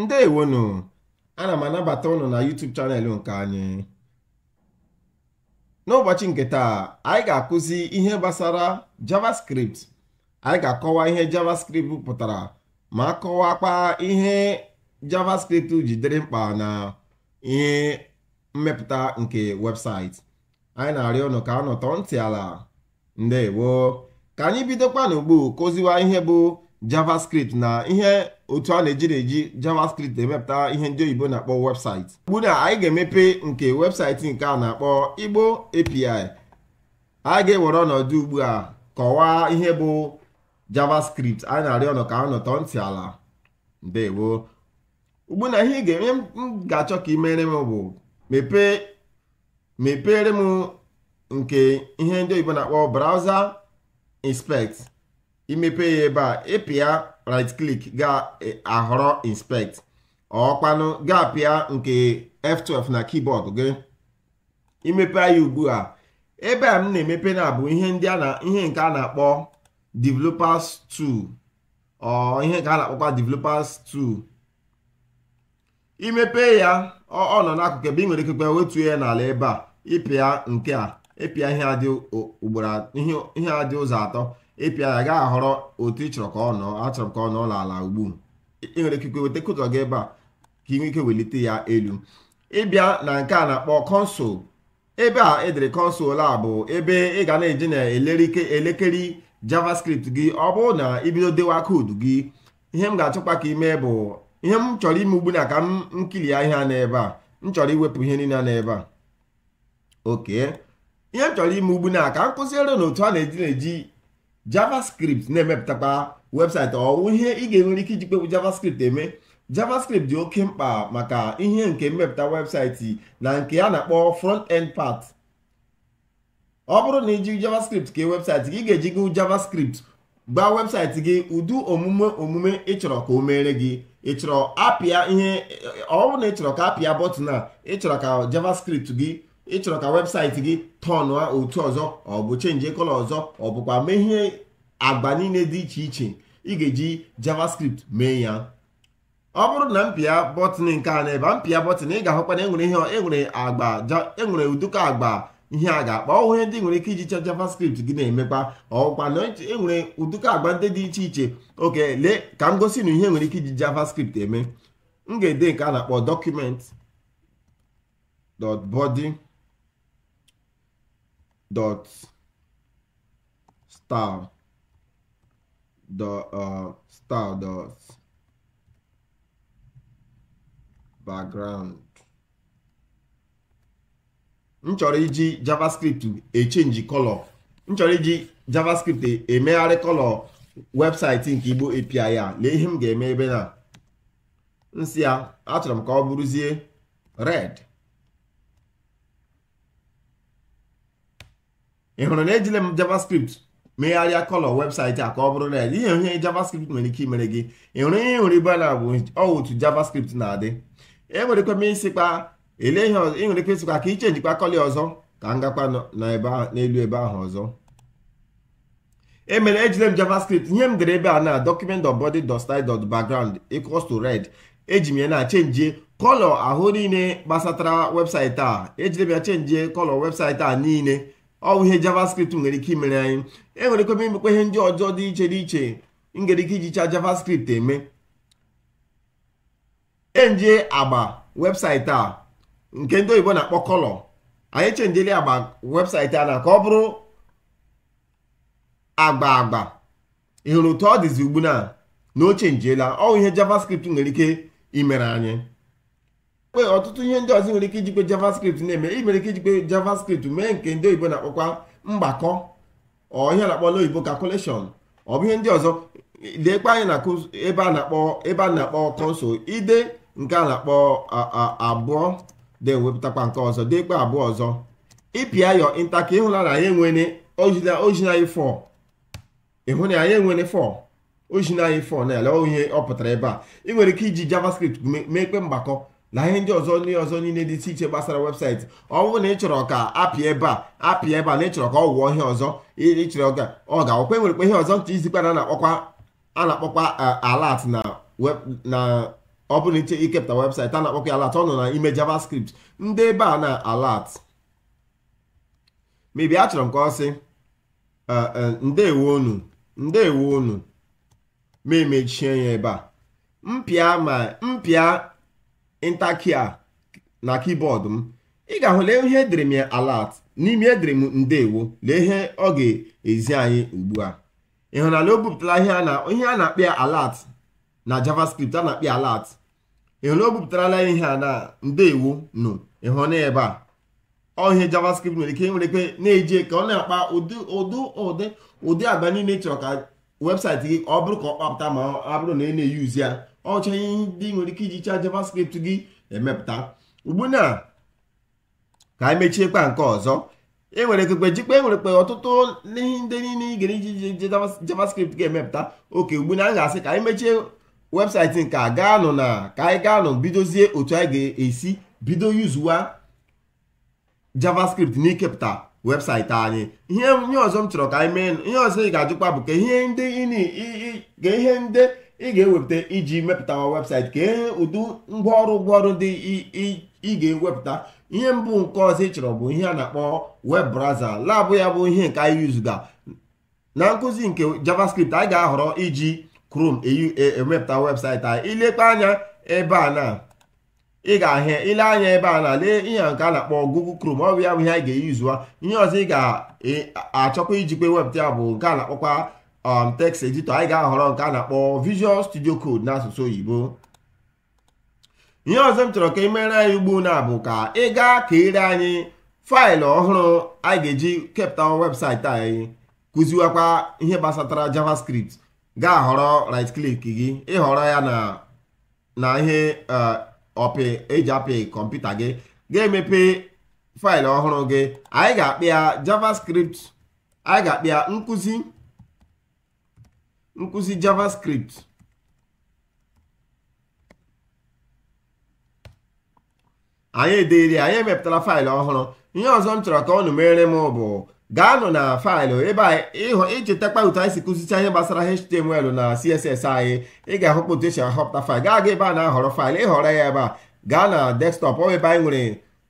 ndewonu ana m anabata ụnụ na YouTube chanel nke anyị n'ụbọchị nke taa anyị ga-akụzi ihe gbasara JavaScript anyị ga-akọwa ihe JavaScript pụtara ma kọwakwa ihe JavaScript jidere mkpa na ihe mmepụta nke webụsaịtị anyị na-arịọ ụnụ ka a nọtọ ntị ala ndewo ka anyị bidokwa n'ugbu kụziwa ihe bụ javascript na ihe otu a na-eji eji javascript emepụta ihe ndị oyibo na-akpọ webụsaịtị ugbu na anyị ga-emepe nke websaịtị nke a na-akpọ igbo api anyị ga-ewere ọnọdụ ugbu a kọwaa ihe bụ javascript anyị na-arịọ ọnọ ka a nọtọ ntị ala ndewo ugbu na ihe ị ga-eme m ga-achọ ka ị m bụ mepere m nke ihe ndị oyibo na-akpọ browser inspekt imepe ya ebe a ịpịa right click ga-ahọrọ e, inspect ọkpanụ ga-apịa nke F12 na keyboard gị imepe ya ugbu a ebe a m na-emepe na bụ ihe ndị a na ihe nke a na-akpọ developers 2 ọ ihe nke a na-akpọkwa developers 2 imepe ya ọ nọ n'akụkụ ebe ị nwere ikekwe wetuo ya n'ala ebe a ịpịa nke a ịpịa ihe adị ụzọ atọ ịpịa ya gaa ahọrọ otu ị chọrọ ka ọ nọ achọrọ m ka ọ nọ n'ala ugbu ị nwere ikike weta kụtọ gị ebe a ka ị nwee ike welite ya elu ịbịa na nke a na-akpọ kọnsụl ebe a edere kọnsụl a bụ ebe ị ga na-eji na elekere javascript gị ọ bụrụ na ibido dewa koodu gị ihe m ga-achọkwa ka ime bụ ihe m chọrọ ime ugbu na ka m nkiri ya ihe a n'ebe a m chọrọ iwepụ ihe niile n'ebe a oke ihe m chọrọ ime ugbu na ka m kụziere na otu a na-eji na-eji javascript na-emepụtakwa webụsaịtị ọwụ ihe ị ga-enwere ike iji kpegbu javascript eme javascript dị oke mkpa maka ihe nke mmepụta webụsaịtị na nke a na-akpọ front end part ọ bụrụ na iji javascript kee webụsaịtị gị ga-eji gụ javascript gbaa webụsaịtị gị ụdị omume omume ị chọrọ ka o mere gị ị chọrọ apịa ihe ọ na ị chọrọ ka apịa bọtụn a ị chọrọ ka javascript gị ị chọrọ ka webụsaịtị gị tọn otu ọzọ ọ bụ chenji kọlọ ọzọ ọ bụkwa mee ihe agba niile dị iche iche ị ga-eji javascript mee ya ọ bụrụ na mpịa bọtịn nke a na-ebe mpịa bọtịn ị ga-ahụkwa na enwere ihe enwere agba enwere ụdịka agba ihe a ga akpọ ọhụrụ ndị nwere ike iji chọ javascript gị na-emekwa ọkwa na enwere e ụdịka agba ndị dị iche iche oke lee ka m gosi na ihe nwere ike iji javascript eme m ga-ede nke a na-akpọ document dot body dot style the uh, Stardust background. m chọrọ iji javascript echenji kọlọ m iji javascript emegharị kọlọ webụsaịtị nke igbo api ya lee ihe m ga-eme ebe na nsị ya achọrọ m ka ọ bụrụzie red ị hụrụ na ejile m javascript megharịa kọlọ webụsaịtị a ka ọ bụrụ red ihe ihe javascript nwere ike imere gị ịhụrụ ihe ịhụrụ ibe na bụ otu javascript na-adị enwere ike ịsịkwa ele ihe ọzọ nwere ike ka ka ichenjikwa kọlị ọzọ ka m gakwa n'elu ebe ahụ ọzọ emere ejide m javascript ihe m dere ebe a na document.body.style.background equals to red eji m ya na chenjie kọlọ ahụ niile gbasatara webụsaịtị a ejire m ya chenjie kọlọ webụsaịtị a niile ọwụ ihe javascript nwere ike imere anyị enwere ike imekwa ihe ndị ọjọọ dị iche dị iche ngere ike ijicha javascript eme enje agba webụsaịtị a nke ndị oyibo na-akpọ kọlọ anyị chenjeli agba webụsaịtị a na ka ọ bụrụ agba agba ị hụrụ otu ọ dịzi ugbu na na o chenjiela ọwụ ihe javascript nwere ike imere anyị kwe ọtụtụ ihe ndị ọzọ nwere ike ijikwe javascript na-eme ị nwere ike ijikwe javascript mee nke ndị oyibo na-akpọkwa mgbakọ ọhịa na-akpọ n'oyibo calculation ọ bụ ihe ndị ọzọ leekwa anyị na ebe a na-akpọ ebe a na-akpọ kọnsụl ide nke a na-akpọ abụọ na-ewepụtakwa nke ọzọ deekwa abụọ ọzọ ịpịa yọ nta ka ịhụla na anyị enwere ojinanyị fọ ịhụ na anyị enwere fọ ojinanyị fọ na ele ihe ọ pụtara ebe a ị nwere ike iji javascript meekwe mgbakọ na ihe ndị ọzọ ndị ọzọ niile dị iche iche gbasara webụsaịtị ọ bụrụ na ị chọrọ ka apịa ebe a apịa ebe a na ịchọrọ ka ọ wụọ ihe ọzọ ịchọrọ ka ọ ga-akwụkwọ enwerekwa ihe ọzọ nche izikwa na a na-akpọkwa eh, alat na ọ bụrụ iche ikepụta webụsaịtị a na-akpọkwa alat ọ nọ na ime javascript ndị ebe a na alat mebi achọrọ m ka ọ sị eh, eh, ndewo unu ndewo unu ma emechie ya ebe a mpịa ma mpịa intakia na kibọọdụ m ị ga-ahụ lee ihe edere m ya alat n'ime edere m ndewo lee ihe ọ ga-ezi anyị ugbu a ị o bupụtara ihe a na-akpị ya alat na javascript a na-akpị ya alat ị hụrụ o bupụtarala ihe a na ndewo nụ ịhụna ebe a ọ ihe javascript nwere ike e nwere ike na-eji ka ọ na-akpa ụdị ụdị ụdị ụdị agba niile chọrọ ka webụsaịtị gị ọ bụrụ ka ọ kpapụta ma ọ bụrụ na ị na-eyuzi ya ọcha ihe ndị nwere ike iji chaa javascript gị emepụta ugbuna ka anyị mechiekwa nke ọzọ enwere ekekpe jikpe enwerekpe ọtụtụ ihe ndị niile ị gara iji javascript ga-emepụta oke ugbu na anyị ga-asị ka anyị mechie webụsaịtị nke a na ka anyị gaanụ bidozie otu anyị ga-esi bido yuzuwa javascript n'ikepụta webụsaịtị anyị ihe ọzọ m chọrọ ka anyị mee ihe ọzọ ị ga-ajụkwa bụ ka ihe ndị ị ga-ewepụta iji mepụtawa webụsaịtị kee ụdị ngwaọrụ ngwaọrụ dị ị ga-ewepụta ihe mbụ nke ọzọ ị chọrọ bụ ihe a na-akpọ web browser labụ ya bụ ihe nke anyị yuzuga na nkụzi nke javascript anyị ga-ahọrọ iji chrome e, e, emepụta webụsaịtị anyị ilekpe anya ebe a na ị ga-ahịa ile anya ebe a na lee ihe nke a na-akpọ google chrome ọ bụ ya bụ ihe anyị ga-eyuzuwa ihe ọzọ ị ga-achọkwa ijikwa webụta ya bụ nke a na-akpọkwa um text editor anyị ga-ahọrọ nke a na-akpọ visual studio code n'asụsụ oyibo ihe ọzọ m chọrọ ka ị mere anyị ugbu na bụ ka ị gaa ka ire anyị faịlụ ọhụrụ anyị ga-eji kepụta webụsaịtị anyị kụziwakwa ihe gbasatara javascript ga-ahọrọ right click gị ịhọrọ ya na na ihe ọpị uh, eji apị kọmputa gị ga-emepe faịlụ ọhụrụ gị anyị ga-akpị ya javascript anyị ga-akpị ya nkụzi nkụzi javascript anyị ederi anyị emepụtara faịlụ ọhụrụ ihe ọzọ m chọrọ ka ọ nụ m bụ gaanụ na faịlụ ebe ichetakwa otu anyị si kụzicha ihe gbasara html na css anyị ị ga-ahụpụ otu esi ahọpụta faịlụ gaa aga ebe a na-ahọrọ faịlụ ịhọrọ ya ebe a gaa na ọ ebe anyị nwere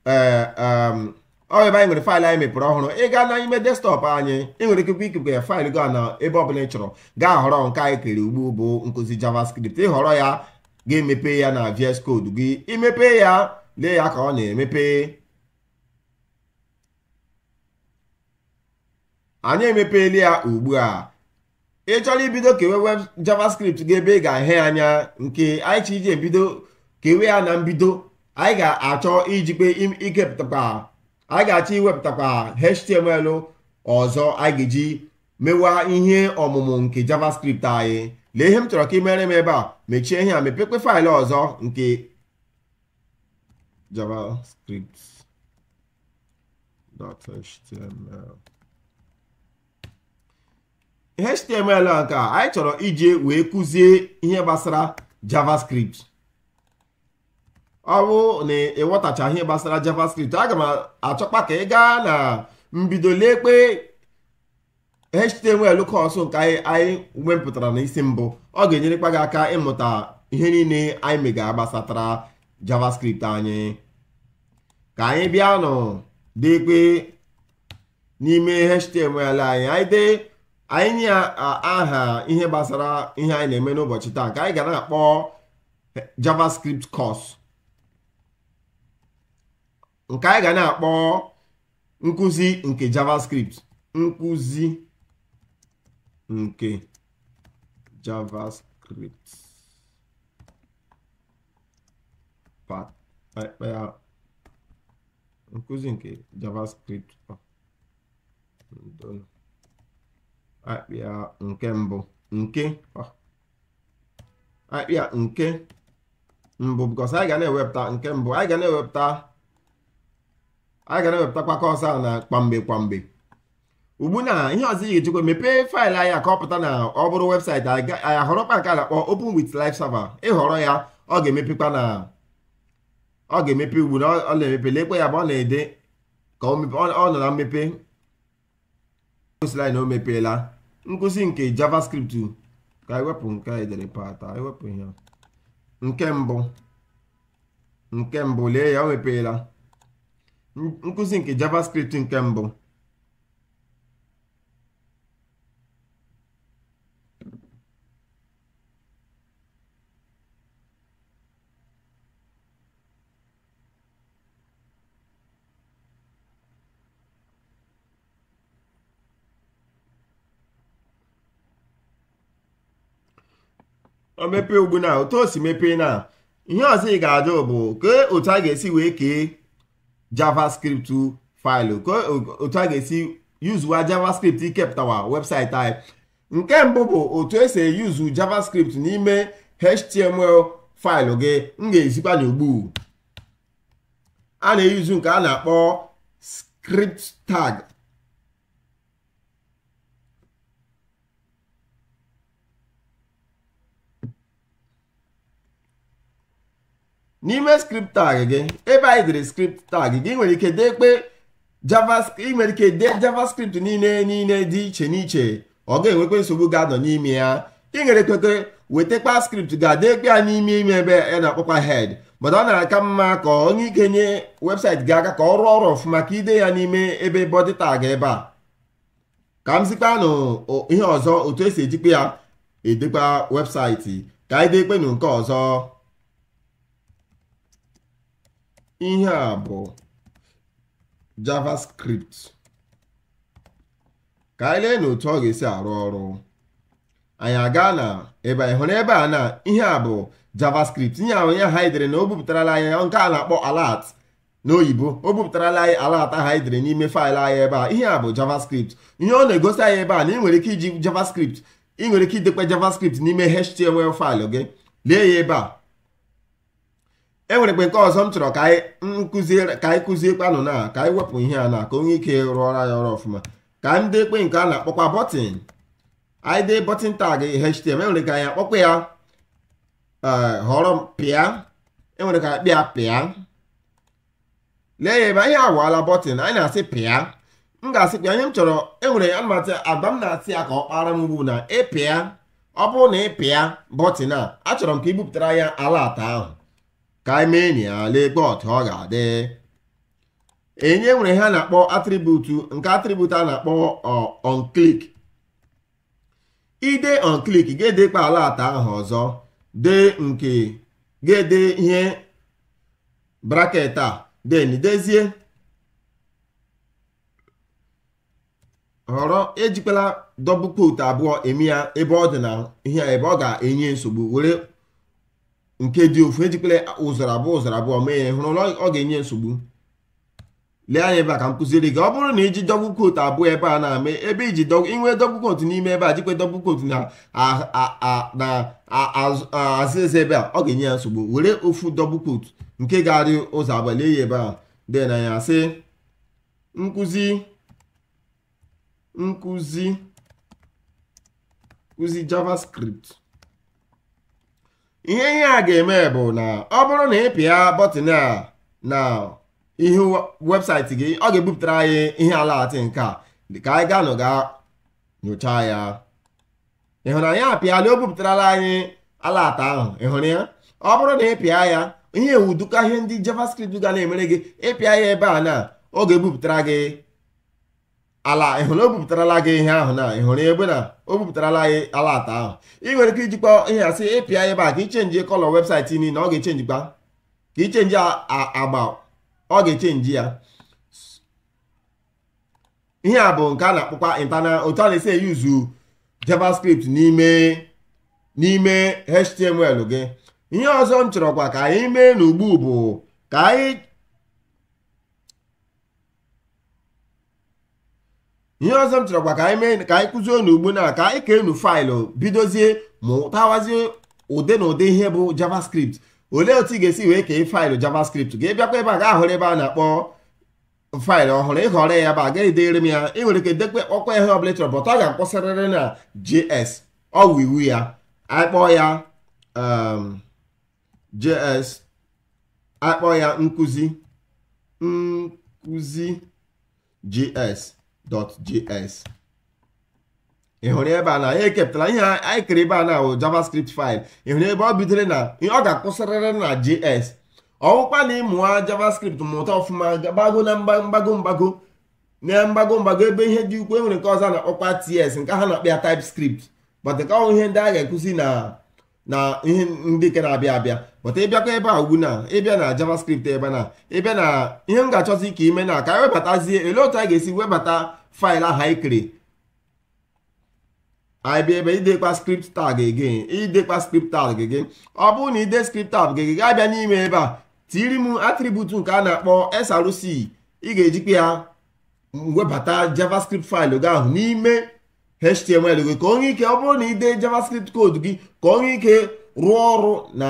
eh, ọ ebe anyị nwere faịlụ anyị mepere ọhụrụ ị gaa n'ime desktọpụ anyị ị nwere ike ikekwe ya faịlụ gaa na ebe ọbụla ị chọrọ gaa họrọ nke anyị kere ugbu bụ nkụzi javascript ịhọrọ ya ga-emepe ya na VS Code gị imepe ya lee ya ka ọ na-emepe anyị emepeela ya ugbu a ị chọrọ ibido kewe web javascript gị ebe ị ga-ahịa anya nke anyị chi iji ebido kewe ya na mbido anyị ga-achọ ijikpe ikepụtakwa anyị ga-achọ iwepụtakwa html ọzọ anyị ga-eji mewa ihe ọmụmụ nke javascript anyị lee ihe m chọrọ ka ị mere m ebe a mechie ihe a mepekpe faịlụ ọzọ nke javascript.html html nke anyị chọrọ iji wee kụzie ihe gbasara javascript ọ bụ na ịghọtacha ihe gbasara javascript aga m achọkwa ka ị gaa na mbido lekpe html kọọsụ nke anyị wepụtara n'isi mbụ ọ ga-enyerekwa gị aka ịmụta ihe niile anyị mega gbasatara javascript anyị ka anyị bịa nụ dekpe n'ime html anyị anyị anyị nye aha ihe gbasara ihe anyị na-eme n'ụbọchị taa ka anyị ga na-akpọ javascript kọọsụ. nke anyị ga na-akpọ nkụzi nke javascript nkụzi nke javascript part eh, eh, nkụzi nke javascript akpịa nke mbụ nke ah, akpịa nke mbụ because anyị ga na-ewepụta nke mbụ anyị ga na-ewepụta anyị ga na-ewepụtakwa ka ọsọ a na kwamgbe kwamgbe ugbu na ihe ọzọ ị ga-echekwa mepee faịlụ anyị ka ọ pụta na ọ bụrụ webụsaịtị anyị ahọrọkwa nke a na-akpọ open with server ịhọrọ ya ọ ga-emepekwa na ọ ga-emepe ugbu na ọ na-emepe lekwe ya bụ ọ na-ede ka ọ nọ na mmepe osila na o mepeela nkụzi nke javascript ka anyị wepụ nke a edere pata ihe nke mbụ nke mbụ lee ya o mepeela nkụzi nke javascript nke mbụ o mepee ugbu na otu o si mepee na ihe ọzọ ị ga-ajụ bụ kee otu a ga-esi wee kee javascript faịlụ otu a ga-esi yuzuwa javascript ikepụtawa webụsaịtị anyị nke mbụ bụ otu esi eyuzu javascript n'ime html faịlụ gị m ga-ezikwa n'ugbu a na-eyuzu nke a na-akpọ script tag n'ime script tag gị ebe anyị dere script tag gị nwere ike dekpe ị nwere ike dee javascript niile niile dị iche n'iche ọ ga-enwekwa nsogbu ga-anọ n'ime ya ị nwere ikweke wetakwa script ga-adekpe ya n'ime ime ebe a na-akpọkwa head mana ọ na-aka mma ka onye ike nye webụsaịtị gị aka ka ọ rụọ ọrụ ọfụma ka ide ya n'ime ebe bọdị tag ebe a ka m zikpanụ ihe ọzọ otu esi ejikwa ya edekwa webụsaịtị ka anyị dekpe nụ nke ọzọ ihe a bụ javascript ka anyị lee n'otu ọ ga-esi arụ ọrụ anyị aga na ebe anyị hụrụ ebe a na ihe a bụ javascript ihe ahụ ya ha na o bupụtarala anyị nke a na-akpọ alert n'oyibo o bupụtarala anyị alat ahụ n'ime faịlụ anyị ebe a ihe a bụ javascript ihe ọ na-egosi anyị ebe a na ị nwere ike iji javascript ị nwere ike idekwa javascript n'ime html faịlụ gị lee ya ebe a enwere mgbe nke ọzọ m chọrọ ka anyị kụzie kpanụ na ka anyị wepụ ihe a na ka onye ike rụọra ya ọrụ ọfụma ka anyị ekpe nke a na-akpọkwa bọtịn anyị dee bọtịn tag htm enwere ka anyị akpọkwa ya e, họrọ pịa enwere ka akpịa pịa lee ya ebe anyị awaala bọtịn anyị na-asị pịa m ga-asị pịa ihe m chọrọ enwere anụmatụ agba m na-asị ya ka ọ kpara m ugbu na ịpịa ọ bụrụ na ịpịa bọtịn a achọrọ m ka ibupụtara ya ala ahụ ka anyị enyi ya lekpe ọ ga-adị enye nwere ihe a na-akpọ atributu nke atributu a na-akpọ onklik ide onklik ga-edekpa ala atọ ahụ ọzọ dị nke ga-ede ihe braket a den dezie họrọ ejikwala dọbụ kot abụọ eme ya ebe ọ dị na ihe ebe ọ ga-enye nsogbu were nke dị ofu ejikwele ụzọrọ abụọ ụzọrọ abụọ mee ya hụrụ ọ ga-enye nsogbu lee anya ebe a ka m kụziri gị ọ bụrụ na iji dọgbu quote abụọ ebe a na-ame ebe iji inwe dọgbu kotu n'ime ebe a jikwa dọgbu quote na azịza ebe a ọ ga-enye ya nsogbu were ofu dọgbu quote nke ga-arị ụzọ lee ya ebe a dị na ya sị nkụzi nkụzi nkụzi javascript ihe ihe a ga-eme bụ na ọ bụrụ na ị pịa bọtịn a na ihe webụsaịtị gị ọ ga-ebupụtara anyị ihe alaatị nke a dịka anyị gaa nụga nyochaa ya ịhụnanya anyị o bupụtarala anyị alaata ahụ ịhụrụ ya ọ bụrụ na ị pịa ya ihe ewudukọ ihe ndị javascript ga na-emere gị ịpịa ya ebe a na ọ ga-ebupụtara gị ala ịhụrụ o gị ihe ahụ na ịhụrụ ebe na o bupụtarala gị ala ata ahụ ị nwere ike ijikwa ihe asị ịpịa ebe a ka ichenji kọlọ webụsaịtị niile ọ ga-echenjikwa ka ichenji agba ọ ga-echenji ya ihe a bụ nke a na-akpọkwa intana otu a na-esi eyuzu javascript n'ime n'ime html gị ihe ọzọ m chọrọ kwa ka anyị mee n'ugbu bụ ka anyị ihe ọzọ m chọrọkwa ka anyị mee ka anyị kụzie unu ugbu na ka anyị kee enu faịlụ bidozie mụtawazie ụdị na ụdị ihe bụ javascript olee otu ị ga-esi wee kee faịlụ javascript ga bịakwa ebe a ga-ahụrụ ebe a na-akpọ faịlụ ọhụrụ ịhọrọ ya ba agaghị edere m ya ị nwere ike dekwe ọkwa ihe ọbụla chọrọ bọta ọ ga-akpọsarịrị na js ọ wụ iwu ya akpọ ya um, js akpọ ya nkụzi nkụzi js index.js ị hụrụ ebe a na ya ekepụtara ihe anyị kere ebe a na wụ javascript file ị hụrụ ebe ọ bidoro na ọ ga-akwụsịrịrị na js ọwụkwa na ịmụwa javascript mụta ọfụma gbago na mgbago mgbago na mgbago mgbago ebe ihe dị ukwu enwere nke ọzọ na-akpọkwa ts nke ha na-akpa ya typescript but nke ihe ndị a ga ekụzi na na ihe ndị nke na-abịa abịa pụta ịbịakwa ebe a ugbu na ịbịa na javascript ebe na ịbịa na ihe m ga-achọzi ka ime na ka anyị webatazie ele otu anyị ga-esi webata faịlụ ahụ anyị kere anyị bịa ebe idekwa script tag gị idekwa script tag gị ọ bụrụ na ide script tag gị gaa abịa n'ime ebe a tiri m atributu nke a na-akpọ src ị ga-ejikwa ya webata javascript faịlụ gị ahụ n'ime html gị ka onye ike ọ bụrụ na ị dee javascript koodu gị ka onye ike rụọ ọrụ na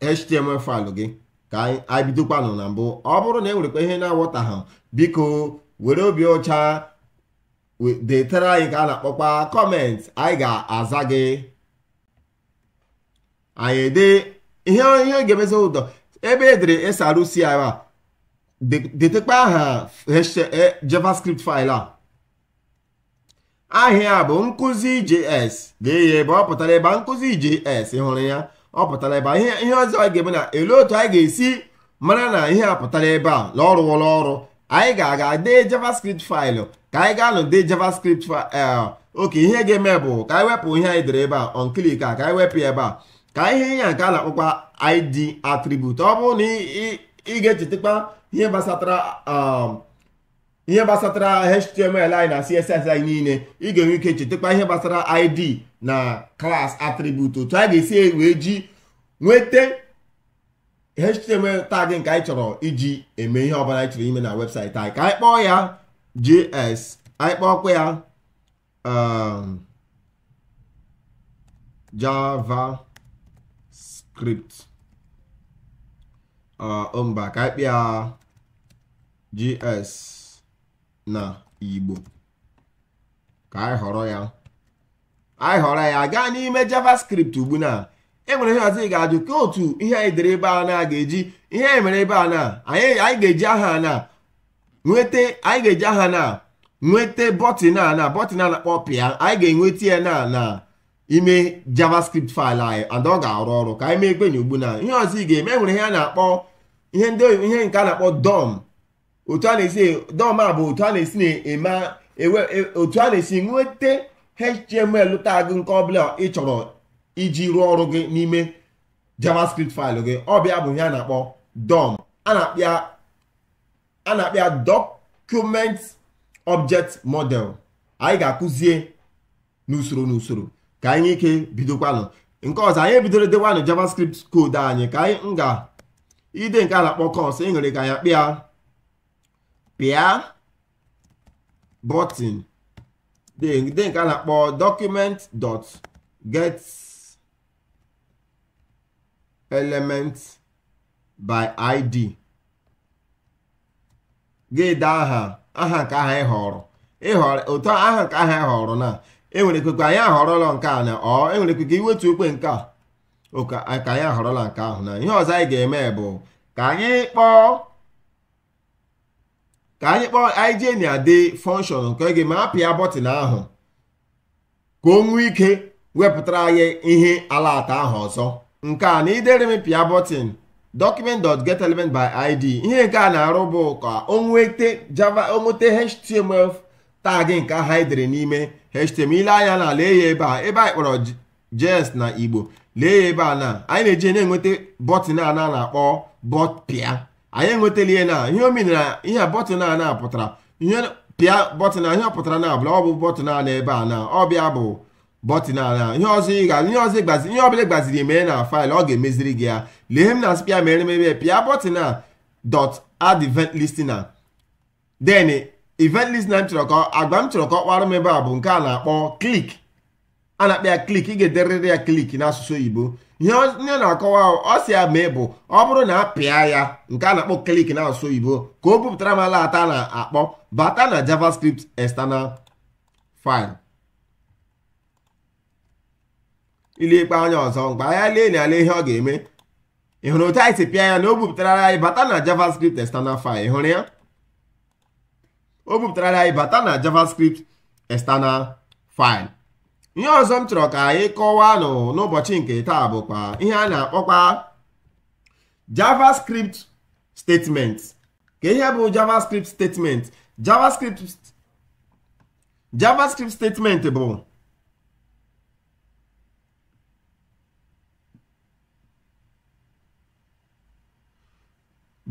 html faịlụ gị ka anyị bidokwanụ na mbụ ọ bụrụ na e nwerekwa ihe na ha biko were obi ọcha detara anyị ka a na-akpọkwa kọment anyị ga-aza gị anyị ede ihe ihe ga-emezi ụdọ ebe edere a detekwa aha e, javascript faịlụ a ahịa bụ nkụzi js lee ya ebe ọ pụtara ebe nkụzi js hụrụ ya ọ pụtara ebe ihe ọzọ anyị ga-eme na elu otu anyị ga-esi mara na ihe a pụtara ebe a na ọrụ wụrụ ọrụ anyị ga-aga dee javascript faịlụ ka anyị ga-anọ dee javascript eh, oke ihe ga-eme bụ ka anyị wepụ ihe anyị dere ebe a onklik a ka anyị wepụ ebe a ka ihe ya nke a na-akpọkwa id atribut ọ bụrụ na ị ga-echetakwa ihe gbasatara um, ihe gbasatara html anyị na css niile ị ga-enwe ike chetakwa ihe gbasara id na class attribute otu a ga-esi wee ji nweta html tag nke anyị chọrọ iji eme ihe ọbụla anyị chọrọ ime na webụsaịtị anyị ka anyị kpọọ ya js anyị kpọọkwa ya um, javascript uh, mba ka anyị ya js na igbo ka anyị họrọ ya anyị họrọ ya gaa n'ime javascript ugbu na enwere ihe ọzọ ị ga-ajụ ka otu ihe anyị dere ebe a na ga-eji ihe anyị mere ebe a na anyị ga-eji aha na nweta anyị ga-eji aha na nweta bọtịn a na bọtịn a na-akpọ pịa anyị ga-enweta ya na na ime javascript faịlụ anyị ada ọ ga-arụ ọrụ ka anyị mee ekwenye ugbu na ihe ọzọ ị ga-eme enwere ihe a na-akpọ ihe ndị ihe nke a na-akpọ dom otu a na-esi e, dọma bụ otu a na-esi na-eme e, otu a na-esi nweta html tag nke ọbụla ị chọrọ iji rụọ ọrụ gị n'ime javascript faịlụ gị ọbịa bụ ihe a na-akpọ dom a na-akpịa document ọbjekt model anyị ga-akụzie n'usoro n'usoro ka anyị ike bidokwanụ nke ọzọ anyị ebidoro dewanụ javascript code anyị ka anyị nga ide nke a na-akpọ kọs e nwere ka anyị akpịa pịa bọtịn dị nke a na-akpọ document dot get element by id ga aha aha nke aha ịhọrọ ụtọ aha nke aha ịhọrọ na enwere ekwe anyị ahọrọla nke a na ọ enwere ekwe iwetu okwe nke a ka anyị ahọrọla nke ahụ na ihe ọzọ anyị ga-eme bụ ka anyị kpọọ ka anyị kpọọ ign adị function nke ga ma apịa bọtịn ahụ ka o nwee ike wepụtara anyị ihe alata ahụ ọzọ nke a na idere m pịa bọtịn document.getElement by id ihe nke a na-arụ bụ ka o nwete java onwete html tag nke ahụ anyị dere n'ime html anya na lee ya ebe a ebe anyị kpọrọ jes na igbo lee ya ebe a na anyị na-eji na-enweta bọtịn a na-akpọ bọtpịa anyị enwetala ihe na ihe o ihe bọtịn a na-apụtara ihe pịa bọtịn a ihe ọ pụtara na abụla ọ bụ bọtịn a na ebe a na ọbịa bụ bọtịn a na ihe ọzọ ị ihe ọzọ gbazi ihe gbaziri mee na faịlụ ọ ga-emeziri gị ya lee m na spịa mere mebe pịa bọtịn a dot add event listener then event m chọrọ ka agba m chọrọ ka ọ kpara m ebe a bụ nke a na-akpọ klik a na-akpa ya klik ị ga-ederịrị ya klik n'asụsụ oyibo ihe onye na-akọwa ọ sị ya mee bụ ọ bụrụ na a pịa ya nke a na-akpọ klik n'asụsụ oyibo ka o bupụtara m ala ata na-akpọ bata na javascript external file ikpe anya ọzọ mgbe anya lee na ala ihe ọ ga-eme ị hụrụ otu anyị si pịa ya na o bupụtara anyị bata na javascript external file ị ya o bupụtara anyị bata na javascript external file ihe ọzọ m chọrọ ka anyị kọwaa nụ n'ụbọchị nke taa bụkwa ihe a na-akpọkwa javascript statement ka ihe bụ javascript statement javascript javascript statement bụ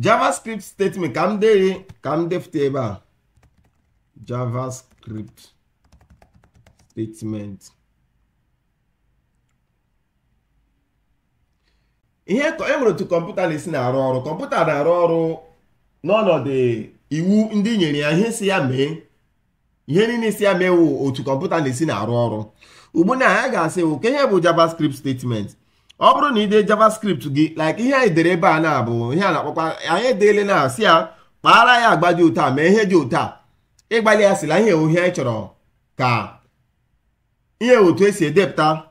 javascript statement ka m dee ka m defute ebe a javascript statement ihe e nwere otu kọmputa na-esi na-arụ ọrụ kọmputa na-arụ ọrụ n'ọnọdụ iwu ndị nyere ya ihe si ya mee ihe niile isi ya mee wụ otu kọmputa na-esi na-arụ ọrụ ugbu na ya ga-asị wụ ka ihe bụ javascript statement ọ bụrụ na ị dee javascript gị like ihe anyị dere ebe a na-abụ ihe a na-akpọkwa anyị edeele na si ya kpaara ya agba dị ụtọ mee ihe dị ụtọ a ịgbalị ya sila ihe ewu ihe anyị chọrọ ka ihe otu esi edepụta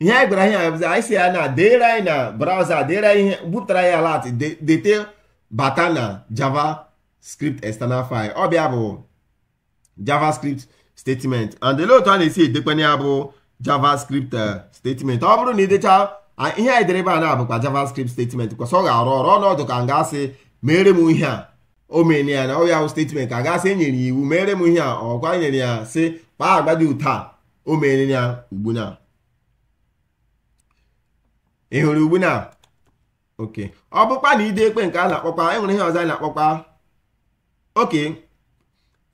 ihe anyị gwara ihe abụzi anyị si ya na deere anyị na browser deere anyị ihe bupụtara ya lat dete bata na javascript external file ọ bịa bụ javascript statement and olee otu a na-esi edekwanye ya bụ javascript eh, statement ọ bụrụ na idecha ihe anyị dere ebe a na-abụkwa javascript statement kwesị ọ ga-arụ ọrụ ọnọdụ ka nga ga-asị mere m ihe a o mere ya na ọ bụ statement ka a gasị enyere iwu mere m ihe a ọkwa e nyere ya si kpaa agwa dị ụta o mere ya ugbu na ị hụrụ ugbu na oke ọ na ide ekpe nke a na-akpọkwa enwere ihe ọzọ anyị na-akpọkwa oke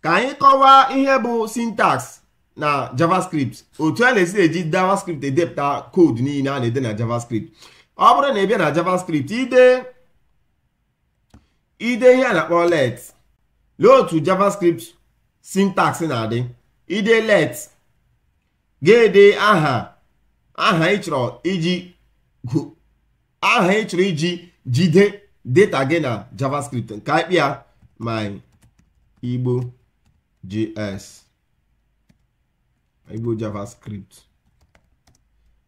ka anyị kọwaa ihe bụ syntax na javascript otu a na-esi eji javascript edepụta koodu niile a na-ede na javascript ọ bụrụ na ị bịa na javascript ide ide ihe a na-akpọ let lee otu javascript sintaks na-adị ide let ga-ede aha aha ị chọrọ iji aha ị chọrọ iji jide data gị na javascript nke anyị kpịa igbo js igbo javascript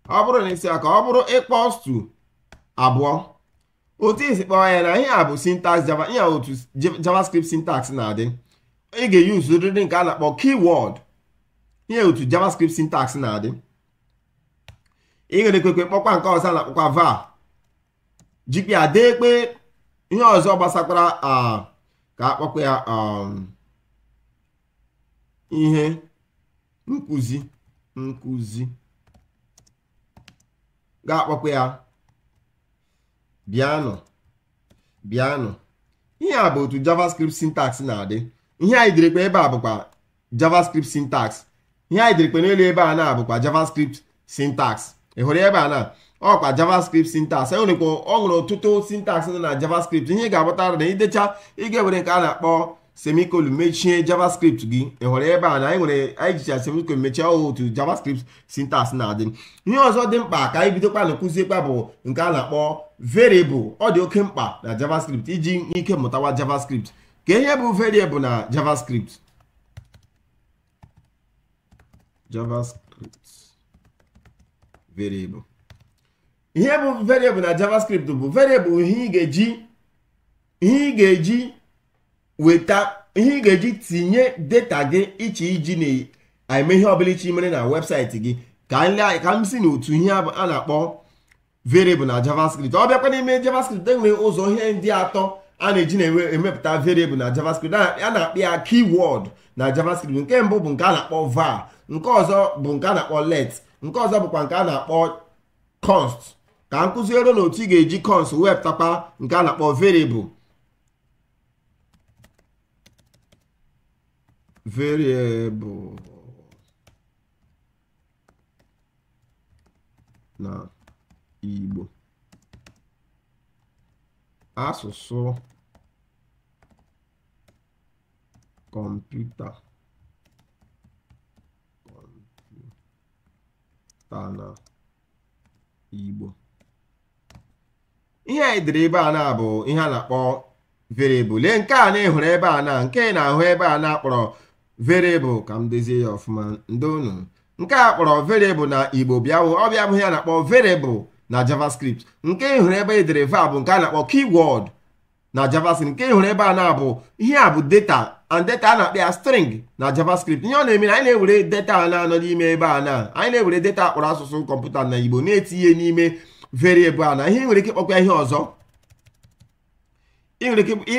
ọ bụrụ na isi aka ọ bụrụ equals abụọ otu isi kpọọ ya na ihe a bụ java ihe otu javascript syntax na-adị ị ga-eyuzu ụdịdị nke a na-akpọ keyword ihe otu javascript syntax na-adị ịghara ekwekwe kpọkwa nke ọzọ na-akpọkwa va jikpịa dee kpe ihe ọzọ gbasakwara ka akpọkwa ya um, ihe nkuzi nkụzi ga-akpọkwa ya bịanụ bịanụ ihe a bụ otu javascript syntax na-adị ihe anyị dịrịkwa ebe a bụkwa javascript syntax ihe anyị dịrịkwa n'elu ebe a na-abụkwa javascript syntax ị ebe a na ọkwa javascript syntax e nwerekwa ọ nwere ọtụtụ syntax dị na javascript ihe ga-abụtara na idecha ịga were nke a na-akpọ semicolon mechie javascript gị ị ebe a na anyị nwere anyị jicha semicolon mechie ọhụụ otu javascript syntax na-adị ihe ọzọ dị mkpa ka anyị bidokwa na kụziekwa bụ nke a na-akpọ variable ọ dị oke mkpa na javascript iji ike mụtawa javascript ka ihe bụ variable na javascript javascript variable ihe bụ variable na javascript bụ variable ihe ị ga-eji ihe ị ga-eji weta ihe ị ga-eji tinye data gị iche iji na-eme ihe ọbụla iche mere na webụsaịtị gị ka m si n'otu ihe a na-akpọ variable na javascript ọ bịakwa n'ime javascript e ụzọ ihe ndị atọ a na-eji na-emepụta variable na javascript a na-akpọ ya keyword na javascript nke mbụ bụ nke a na-akpọ var nke ọzọ bụ nke a na-akpọ let nke ọzọ bụkwa nke a na-akpọ const ka m kụziere n'otu otu ị ga-eji const wepụtakwa nke a na-akpọ variable na Igbo asụsụ kọmputa ala Igbo ihe anyị dere ebe a na bụ ihe a na-akpọ variable lee nke a na-ehụrụ ebe a na nke na-ahụ ebe a na-akpọrọ variable ka m dozie ya ọfụma ndị unu nke a kpọrọ variable na Igbo bịawụ ọ bịa ihe a na-akpọ variable na JavaScript nke ịhụrụ ebe edere va bụ nke a na-akpọ keyword na JavaScript nke ịhụrụ ebe a na-abụ ihe a bụ data and data a na-akpọ ya string na javascript ihe ọ na-eme anyị na-ewere data a na-anọ n'ime ebe a na anyị na-ewere data akpọrọ asụsụ kọmputa na igbo na-etinye n'ime variable a na ihe nwere ike ịkpọkwa ihe ọzọ ị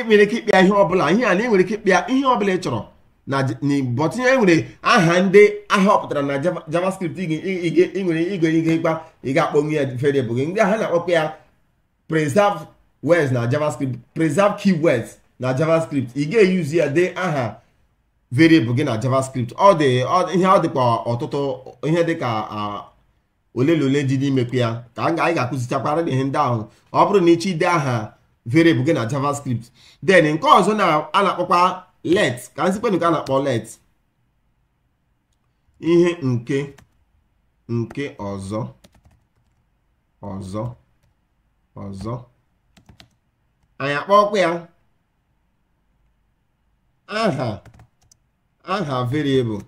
nwere ike ịkpịa ihe ọbụla ihe a na ike ịkpịa ihe ọbụla ị chọrọ na igbo tinye aha ndị aha ọpụtara na javascript ị nwere igwe ihe ịkpa ị ga-akpọnwu ya variable gị ndị aha na-akpọkwa ya preserve words na javascript preserve words. na javascript ị ga-eyuzi ya dee aha variable gị na javascript ọ dị ihe ọ dịkwa ọtụtụ ihe dịka ole na ole dị n'imekwu ya ka anyị ga-akụzichakwara ihe ndị ahụ ọ bụrụ na ịchọ ide aha variable gị na javascript then nke ọzọ a na-akpọkwa let ka nzikpenụ ka a na-akpọ let ihe nke nke ọzọ ọzọ ọzọ anyị akpọkwa ya aha aha variable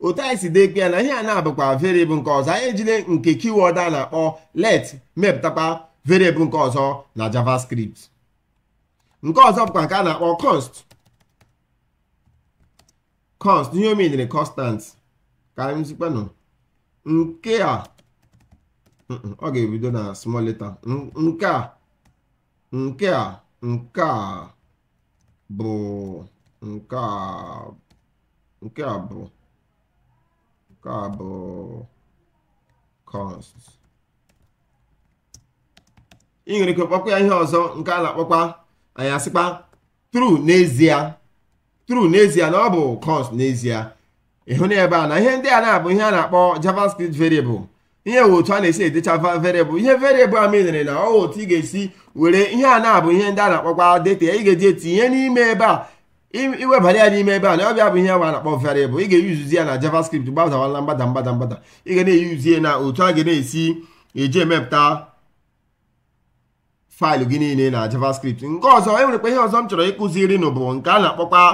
otu anyị si dekpe na ihe a na-abụkwa variable nke ọzọ anyị ejide nke keyword a na-akpọ let mepụtakwa variable nke ọzọ na javascript nke ọzọ bụkwa nke a na-akpọ const const ihe omedere constant ka anyị nke a ọ ga-ebido na small letter nke a nke a nke a bụ nke a nke a bụ nke a bụ const ị nwere ike kpọkwa ya ihe ọzọ nke a na-akpọkwa anyị asịkpa true n'ezie true n'ezie na ọ bụ const n'ezie ịhụ na ebe a na ihe ndị a na-abụ ihe a na-akpọ javascript variable ihe otu a na-esi edecha variable ihe variable a mere na ọ otu ị ga-esi were ihe a na-abụ ihe ndị a na-akpọkwa deta ị ga-eji etinye n'ime ebe a iwebara ya n'ime ebe a na ọbịa bụ ihe nwa na-akpọ variable ị ga-eyuzi ya na javascript gbadawala mgbada mgbada mgbada ị ga na-eyuzi ya na otu a ga na-esi eji emepụta faịlụ gị niile na javascript nke ọzọ e nwerekwa ihe ọzọ m chọrọ ịkụziri nụ bụ nke a na-akpọkwa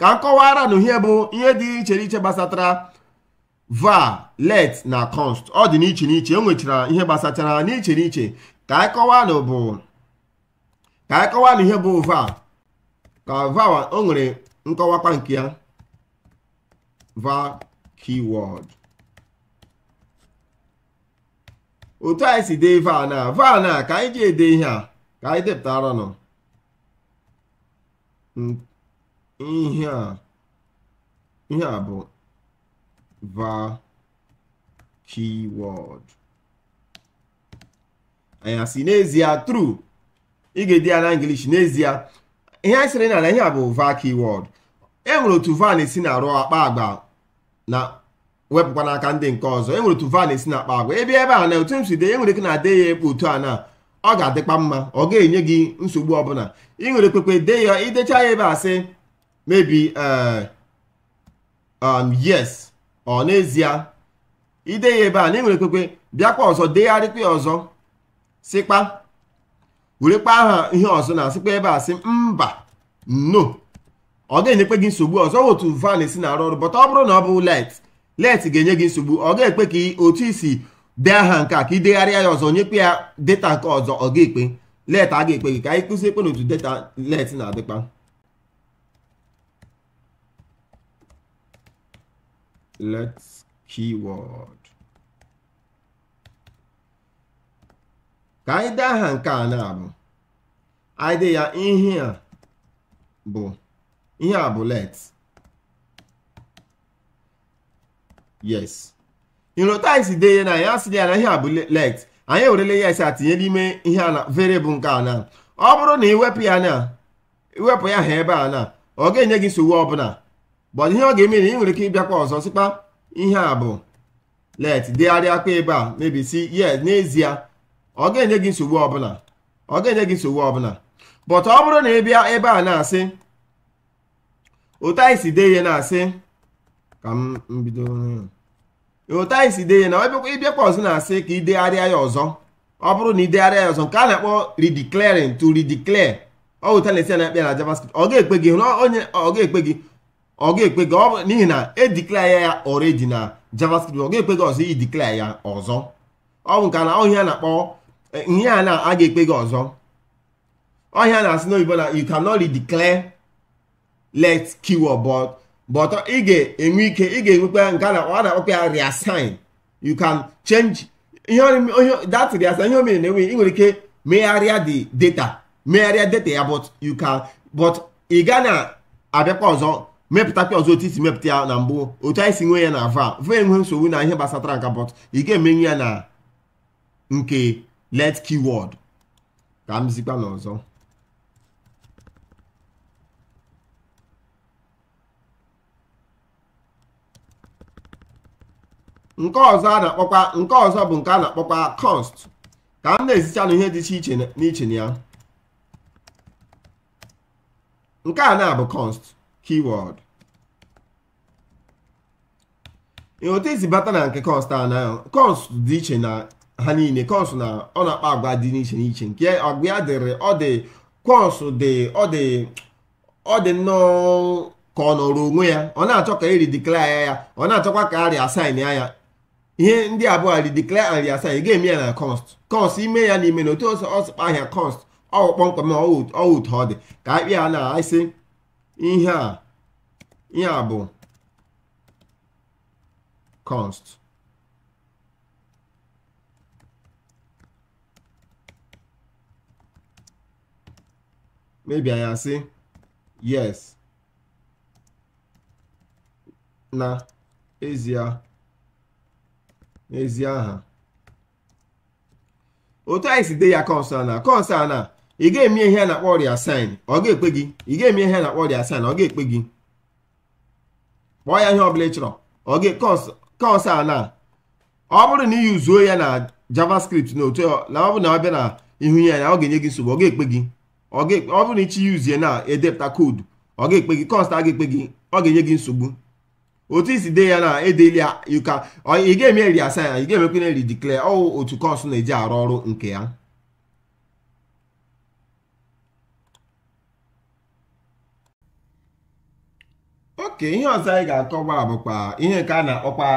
ka m kọwara na ihe bụ ihe dị iche iche gbasatara var let na const ọ dị n'iche n'iche e nwechara ihe gbasachara n'iche n'iche ka anyị kọwanụ bụ ka anyị kọwanụ ihe bụ va ka va o nwere nkọwakwa nke ya va keyword otu anyị si dee va na va na ka anyị ji ede ihe a ka anyị depụtara nọ ihe a ihe a bụ va keyword anya si n'ezie true ị ga-edi ya na English n'ezie ihe anyị sịrị na ihe a bụ vaki wọd e nwere otu var esi na-arụ akpa agba na wepụkwa n'aka ndị nke ọzọ enwere otu var esi na akpa agba ebe ebe a na otu m si e dee e ike na-ade ya ekpe otu a na ọ ga-adịkwa mma ọ ga-enye gị nsogbu ọbụla ị nwere kwekwe dee ya idecha ya ebe a sị mebi eh, um, yes ọ n'ezie ide ya ebe a na ị e nwere bịakwa ọzọ degharịkwa ya ọzọ sịkpa werekpa aha ihe ọzọ na asịkpa ebe a sị mba no ọ ga enyekpe gị nsogbu ọzọ otu van si na-arụ ọrụ bọta ọ bụrụ na ọ bụ let let ga-enye gị nsogbu ọ ga ekpe ka otu isi dee aha nke a ka ị degharịa ya ọzọ nyekwe ya data nke ọzọ ọ ga-ekpe let a ga-ekpe gị ka anyị kụzie ekpe n'otu data let na-adịkpa let keyword ka anyị dee aha nke a na-abụ anyị dee ya ihe a bụ ihe a bụ let yes inrotais dee ya na ya sị ya na ihe a bụ let anyị ewerele yes atinye n'ime ihe a na variable nke a na ọ bụrụ na iwepụ ya na iwepụ ya ha ebe a na ọ ga-enye gị nsogbu ọbụla bọdụ ihe ọ ga-eme na ị nwere ike ịbịakwa ọzọ sịkpa ihe a bụ let degharịa akpa ebe a mebisi yes n'ezie ọ ga-enye gị nsogbu ọbụla ọ ga-enye gị nsogbu ọbụla but ọ bụrụ na ị bịa ebe a na-asị otu anyị si dee ihe na-asị ka m bido otu anyị si dee ihe na ịbịakwa ọzọ na-asị ka ị degharịa ya ọzọ ọ bụrụ na ị degharịa ya ọzọ nke a na-akpọ redeclaring to redeclare ọ wụta na-esi na-akpịa na javascript ọ ga-ekpe gị onye ọ ga-ekpe gị ọ ga-ekpe gị n'ihi na ediklaya ya already na javascript ọ ga-ekpe gị ọzọ i diklaya ya ọzọ ọ bụ nke na ọhịa na-akpọ Eh, ihe a na a ga-ekpe gị ọzọ ọhịa na-asị n'oyibo na you cannot declare let keyword but but ị ga-enwe ike ị ga-enwekwa nke a na-akpọkwa ọ ya reassign you can change ihe that reassign ihe omere na-enwe ị nwere ike megharịa the data megharịa data ya but you can but ị ga na-abịakwa ọzọ mepụtakwa ọzọ otu isi mepụta ya na mbụ otu anyị si nwe ya na va va enwe nsogbu na ihe gbasatara nka but ị ga-emenye ya na nke let keyword ka m zikwa n'ọzọ nke ọzọ a na-akpọkwa nke ọzọ bụ nke a na-akpọkwa cost ka m na-ezicha ihe dị iche n'iche na ya nke a na-abụ const keyword otu isi bata na nke const a na const dị iche na ha niile kọsụ na ọ na-akpa agwa dị n'iche n'iche nke agwa ya dịrị ọ dị kọsụ dị ọ dị ọ dị nnọọ ka ọ nọrọ onwe ya ọ na-achọ ka eri ya ọ na-achọkwa ka arịa asain ya ya ihe ndị abụọ ridiklaya and riasain ga-eme ya na kọst kọst ime ya n'ime na otu ọsịkpa ahịa kọst ọwụ kpọmkwem ọwụtụ ọ dị ka akpị ya na-asị ihe a ihe a bụ kọst maybe ya asị yes na ezie n'ezie aha otu anyị si dee ya kọnsụl na kọnsụl ị ga-eme ihe a na-akpọ ọrịa saịn ọ ga-ekpe gị ị ga-eme ihe a na-akpọ ọrịa saịn ọ ga-ekpe gị kpọọ ya ihe ọbụla ị chọrọ ọ ga kọnsụl ọ bụrụ na ị yuzuo ya na javascript na otu na ọ bụ na ọ bịa na ihu ya na ọ ga-enye gị nsogbu ọ ga-ekpe gị ọ bụrụ na ichi yuzie na-edepụta koodu ọ ga-ekpe gị kọst a ga-ekpe gị ọ ga-enye gị nsogbu otu isi dee ya na edeli ụka ị ga-eme ri asa ya ị ga-emekwa na ri diklea ọwụ otu kọst na-eji arụ ọrụ nke ya oke ihe ọzọ anyị ga-akọba bụkwa ihe nke a na-akpọkwa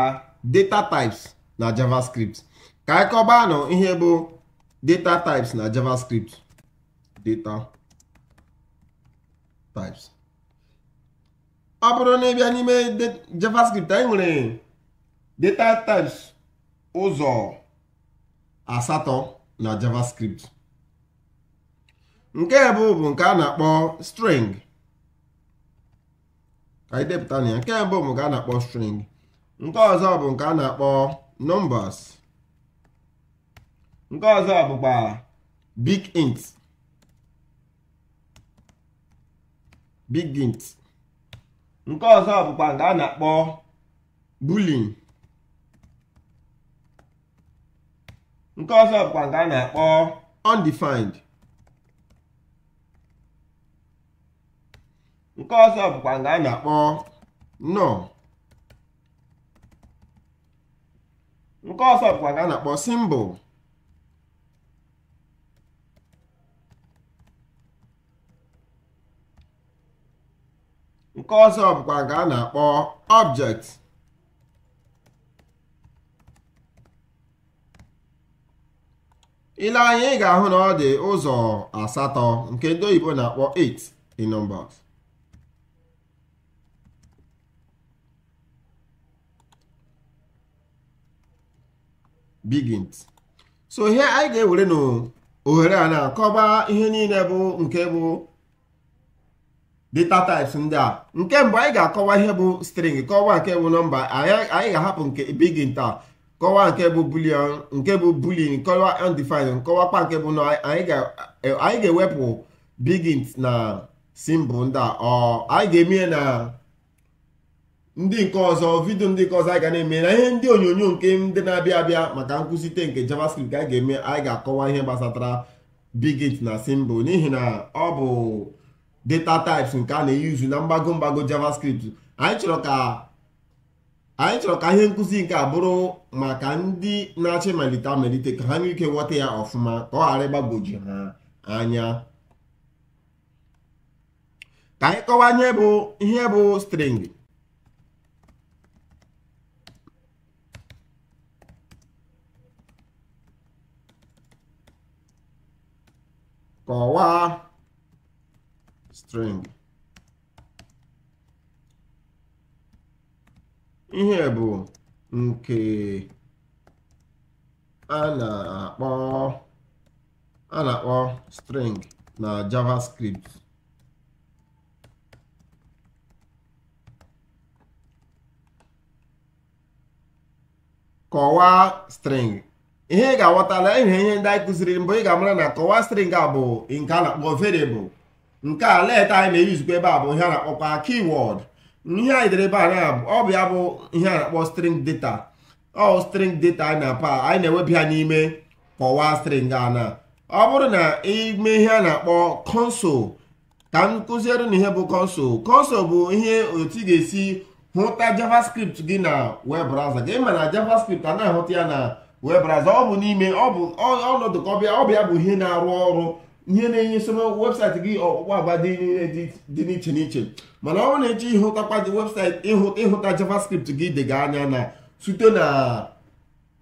data types na javascript ka anyị kọbanụ ihe bụ data types na javascript data types ọ bụrụ na ịbịa n'ime javascript anyị nwere data types ụzọ asatọ na javascript nke mbụ bụ nke a na-akpọ string ka anyị depụta na ya nke mbụ bụ nke a na-akpọ string nke ọzọ bụ nke a na-akpọ numbers nke ọzọ bụkwa big int bigint nke ọzọ bụkwa nke a na-akpọ bulin nke ọzọ bụkwa nke a na-akpọ undefined nke ọzọ bụkwa nke a na-akpọ no nke ọzọ bụkwa nke a na-akpọ simbụl nke ọzọ bụkwa nke a na-akpọ object ile anya ị ga-ahụ na ọ dị ụzọ asatọ nke ndị oyibo na-akpọ 8 in numbers so ihe anyị ga-ewere n'ohere a na-akọba ihe niile bụ nke bụ data types ndị a nke mbụ anyị ga-akọwa ihe bụ string kọwaa nke bụ nọmba anyị ga-ahapụ nke begin taa kọwaa nke bụ boolean nke bụ boolean kọwa undefined kọwakwa nke bụ anyị ga-ewepụ begin na simbụ ndị a anyị ga-emie na ndị nke ọzọ vidio ndị nke ọzọ anyị ga na-eme na ihe ndị onyonyo nke ndị na-abịa abịa maka nkwụsite nke javascript anyị ga-eme anyị ga-akọwa ihe gbasatara bigint na simbụ n'ihi na ọ bụ data types nke a na-eyuzu na mgbago mgbago javascript anyị chọrọ ka anyị chọrọ ka ihe nkụzi nke a bụrụ maka ndị na achị ịmalite amalite ka ha nwee ike ghọta ya ọfụma ka ọ ghara ha anya ka anyị kọwanye bụ ihe bụ string kọwaa string ihe bụ nke a na-akpọ a na-akpọ string na JavaScript kọwaa string ihe ị ga-aghọtala ihe ihe ndị anyị kụziri mbụ ị ga-amara na kọwaa string a bụ nke a na-akpọ variable nke a leta anyị na-eyuzikwa ebe a bụ ihe a na-akpọkwa ihe anyị dere ebe a bụ ya bụ ihe a na-akpọ string data ọ string data anyị na-apa anyị na-ewebi ha n'ime kọwaa string ana ọ bụrụ na ime ihe a na-akpọ console ka m kụziere na ihe bụ console console bụ ihe otu ị ga-esi hụta javascript gị na web browser gị ma na javascript a na-ahụta ya na web ọ bụ n'ime ọ bụ ọnọdụ ka ọbịa bụ ihe na-arụ ọrụ ihe na-enye nsogbu webụsaịtị gị ọkpụkpọ agba dị n'iche n'iche mana ọ bụrụ na eche ịhụtakwa webụsaịtị ịhụta javascript gị dịga anya na site na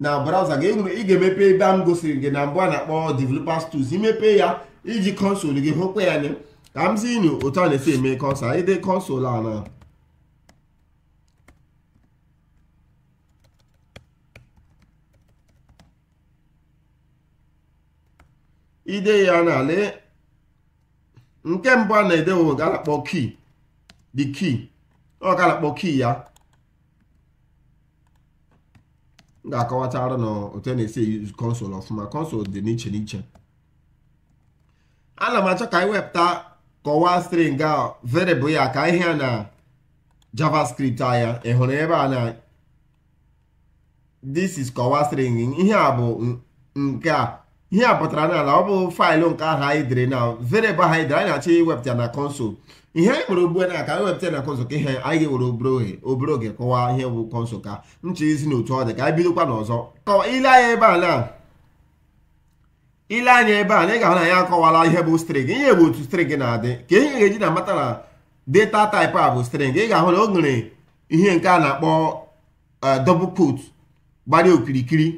na browser gị enwere ị ga-emepe ebe a m gosiri gị na mbụ a na-akpọ developers tools imepe ya iji kọnsụl gị hụkwa ya anya ka m si nu otu a na-esi eme kọnsụl anyị dị kọnsụl a na ide ya n'ala nke mbụ a na-edewo galakpọ ki di key ọ galakpọ kii ya m ga-akọwatara na otu na-esi use console ọfụma console dị n'iche n'iche ana m achọ ka anyị wepụta kọwaa string a variable ya ka ihe na javascript anya ị hụrụ ebe a na this is kọwaa string ihe a bụ nke a ihe a pụtara na ala ọ bụ faịlụ nke ahụ anyị dere na verịbụl ha anyị dere anyị na-achọ iwepụta na kọnsụl ihe anyị nwere ugbu a ka anyị wepụta na kọnsụl ka ihe anyị nwere obere obere oge kọwaa ihe bụ kọnsụl ka nche isi na otu ọ dị ka anyị bidokwa n'ọzọ ile anya ebe a na ile anya ebe a na ị ga-ahụ na ya akọwala ihe bụ string ihe bụ otu string na-adị ka ihe ga-eji na mata na data type a bụ string ị ga-ahụ na o nwere ihe nke a na-akpọ eh, double kot gbara okirikiri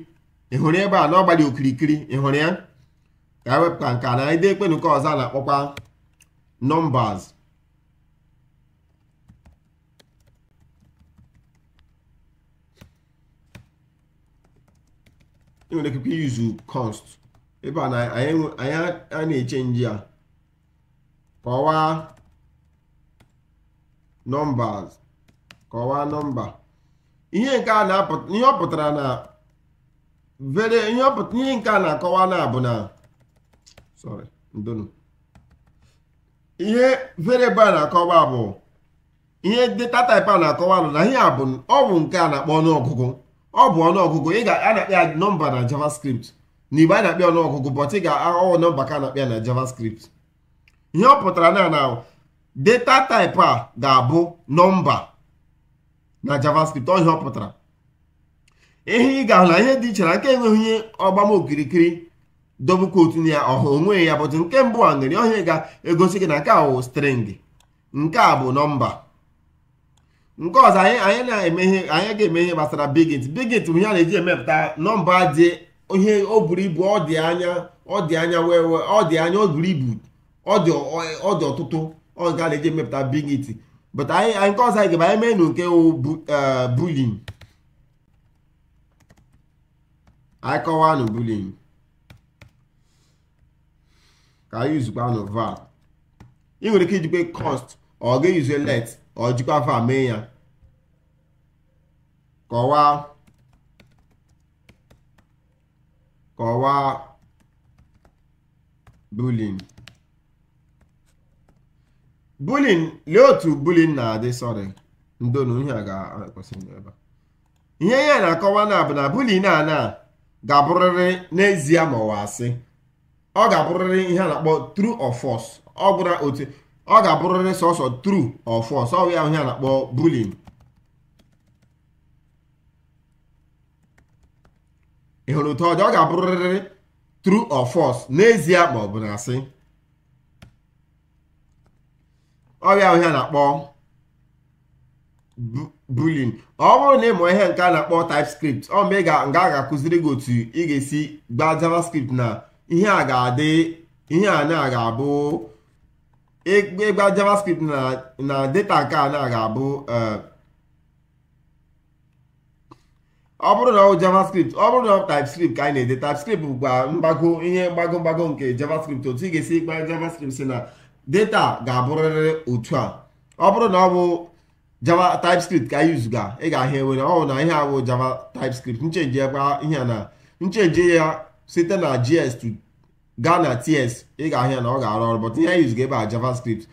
ị hụrụ ebe a na ọ okirikiri ị hụrụ ya ka a e wepụta nke na ide ekpenu ọzọ a na-akpọkwa nọmbas ị nwere ike yuzu kọst ebe a na anyị na-eche nji a kọwaa nọmbas kọwaa nọmba ihe nke a na-apụta ihe ọ pụtara na vere nyọpụta ihe nke a na-akọwa na bụ na sorry ndonu ihe variable a na-akọwa bụ ihe data type a na-akọwa bụ na ihe a bụ ọ bụ nke a na-akpọ ọnụọgụgụ ọ bụ ọnụọgụgụ ị ga-anakpa ya nọmba na javascript na igbe a na-akpịa ọnụọgụgụ but ị ga-aghọwọ nọmba ka a na-akpịa na javascript ihe ọ pụtara na na data type a ga-abụ nọmba na javascript ọ ihe ọ pụtara ihe ị ga-ahụ na ihe dị iche na nke enweghị onye ọgbama okirikiri dobe kootu ya ọhụ onwe ya bụtụ nke mbụ a nwere onye ga-egosi gị na nke a wụ string nke a bụ nọmba nke ọzọ anyị anyị na-eme ihe anyị ga-eme ihe gbasara bigit bigit bụ ihe a na-eji emepụta nọmba dị ihe o buru ibu ọ dị anya ọ dị anya wee ọ dị anya o buru ibu ọ dị ọtụtụ ọ nke a na-eji emepụta bigit but anyị nke ọzọ anyị ga-ebe anyị mee nke wụ eh, bulin anyị kọwanụ bullying ka anyị yuzukwanụ var ị nwere ike ijikwa cost ọ ga-eyuze let ọ jikwa var mee ya kọwaa kọwaa bullying bullying lee otu bullying na-adị sọrị ndonu ihe a ga-ekwesịrị ebe ihe ya na-akọwa na bụ na bullying a na ga-abụrịrị n'ezie ma ọ asị ọ ga-abụrịrị ihe a na-akpọ true ọfọs ọ gwụra otu ọ ga-abụrịrị sọsọ true ọfọs ọ bụ ya ihe a na-akpọ bullying ị hụrụ otu ọ ga-abụrịrị true ọfọs n'ezie ma ọ bụ na asị ọ bụ ya ihe a na-akpọ bulin ọ bụrụ na ịmụ ihe nke a na-akpọ typescript ọ ga nga ga-akụziri gị otu ị ga-esi gbaa javascript na ihe a ga-adị ihe a na ga-abụ ịgba javascript na na data nke a na ga-abụ e, ọ bụrụ na ọ javascript ọ bụrụ na ọ typescript ka anyị na-ede typescript bụkwa mgbago ihe mgbago mgbago nke javascript otu ị ga-esi gbaa javascript si na data ga-abụrịrị otu a ọ bụrụ na ọ bụ java typescript ka anyị zuga ị ga-ahịa ewere ọ na ihe awụ java typescript nchenji ebe ihe na nchenji ya site na gs to gaa na ts ị ga-ahịa na ọ ga-arụ ọrụ but ihe anyị zuga ebe a javascript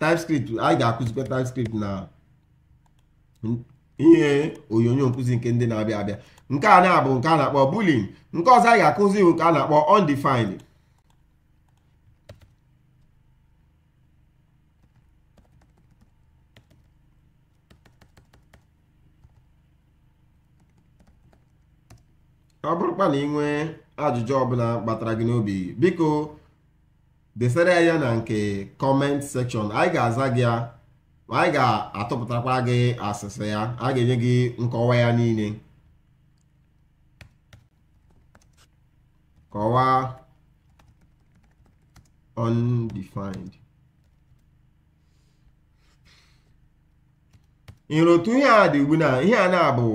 typescript anyị ga-akụzikwa typescript na ihe onyonyo nkụzi nke ndị na-abịa abịa nke a na-abụ nke a na-akpọ bulin nke ọzọ anyị ga-akụzi bụ nke a na-akpọ undefined ọ bụrụkwa na ị nwee ajụjụ ọbụla kpatara gị n'obi biko desere ya na nke kọment sekshọn anyị ga-aza gị ya anyị ga-atụpụtakwa gị asịsị ya a ga-enye gị nkọwa ya niile kọwaa undefined nrotu ihe a dị ugbu na ihe a na-abụ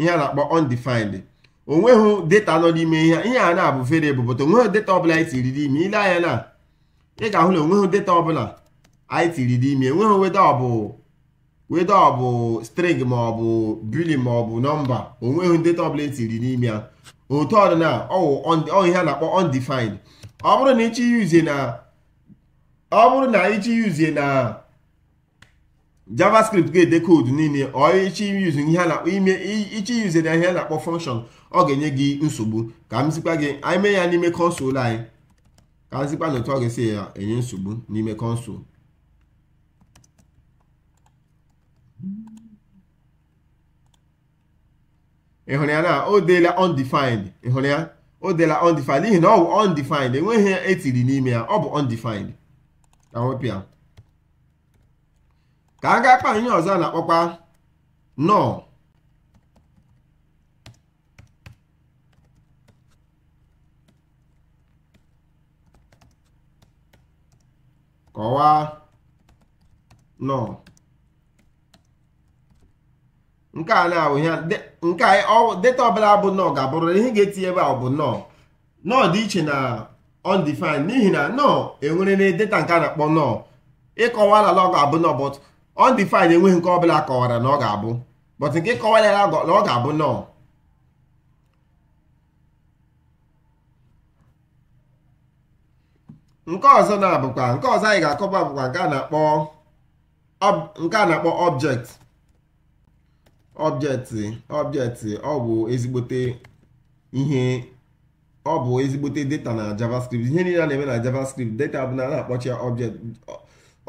ihe a akpọ undefined onweghị data nọ n'ime ihe ihe a na-abụ variable but onweghị data ọbụla anyị tiri n'ime ile anya na ị ga-ahụ na onweghị data ọbụla anyị tiri n'ime enweghị weda ọbụ weda bụ string ma ọ bụ bili ma ọ bụ nọmba onweghị data ọbụla etiri n'ime ya otu ọdịna ọwụ ihe a na-akpọ ọ bụrụ na ịchị yuzie na ọ bụrụ na ịchị yuzie na javascript ga-ede koodu niile ichi yuzere ihe a na-akpọ function ọ ga-enye gị nsogbu ka m zikwa gị anyị mee ya n'ime kọnsụl anyị ka m zikwa na otu ọ ga-esi ya enye nsogbu n'ime kọnsụl ị hụrụ ya na o deela undefined ya o undefined n'ihi na ọ bụ undefined enweghị ya etiri n'ime ya ọ bụ undefined ka m wepụ ya ka a gaa kpaa ihe ọzọ a na-akpọkwa kọwaa nọ nke a na-awụ ihe nke a data ọbụla bụ nọọ ga-abụrụ ihe ga-etinye ebe a bụ nọ nọ dị iche na undefined n'ihi na nọ enwere na data nke a na-akpọ nọ ịkọwa na lọg abụ nọ but undefined enweghị nke ọbụla kọwara na ọ ga-abụ but nke kọwara ya na ọ ga-abụ nọ nke ọzọ na-abụkwa nke ọzọ anyị ga-akọba bụkwa nke a na-akpọ nke a na-akpọ object object object ọ bụ ezigbote ihe ọ bụ ezigbote data na JavaScript ihe niile a na-eme na JavaScript data bụ na a na-akpọchi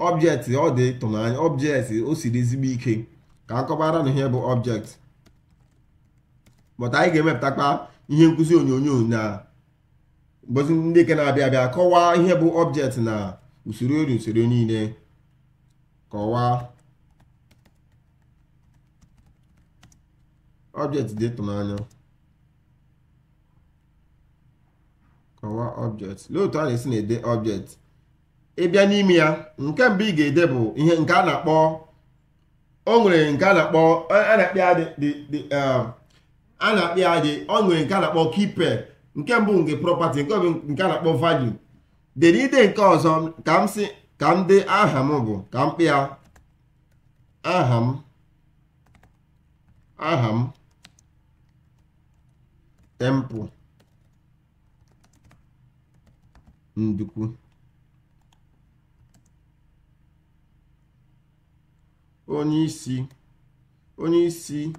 ọbjekt ọ dị ịtụnanya ọbjekt o siri ezigbo ike ka akọbara na ihe bụ ọbjekt bọta anyị ga-emepụtakwa ihe nkụzi onyonyo na mbozi ndị ke na-abịa abịa kọwaa ihe bụ ọbjekt na usoro ori usoro niile kọwaa ọbjekt dị tụnanya kọwaa ọbjekt otu a na-esi na-ede ọbjekt ịbịa n'ime ya nke mbụ ị ga-ede bụ ihe nke a na-akpọ o nwere nke a na-akpọ a na-akpị ya um, a na-akpị ya dị o nwere nke a na-akpọ kipe nke mbụ nke property nke ọbụ nke a na-akpọ value dere ide nke ọzọ ka m si ka m dị aha m bụ ka m kpịa aha m aha m temple ndukwu onyeisi isi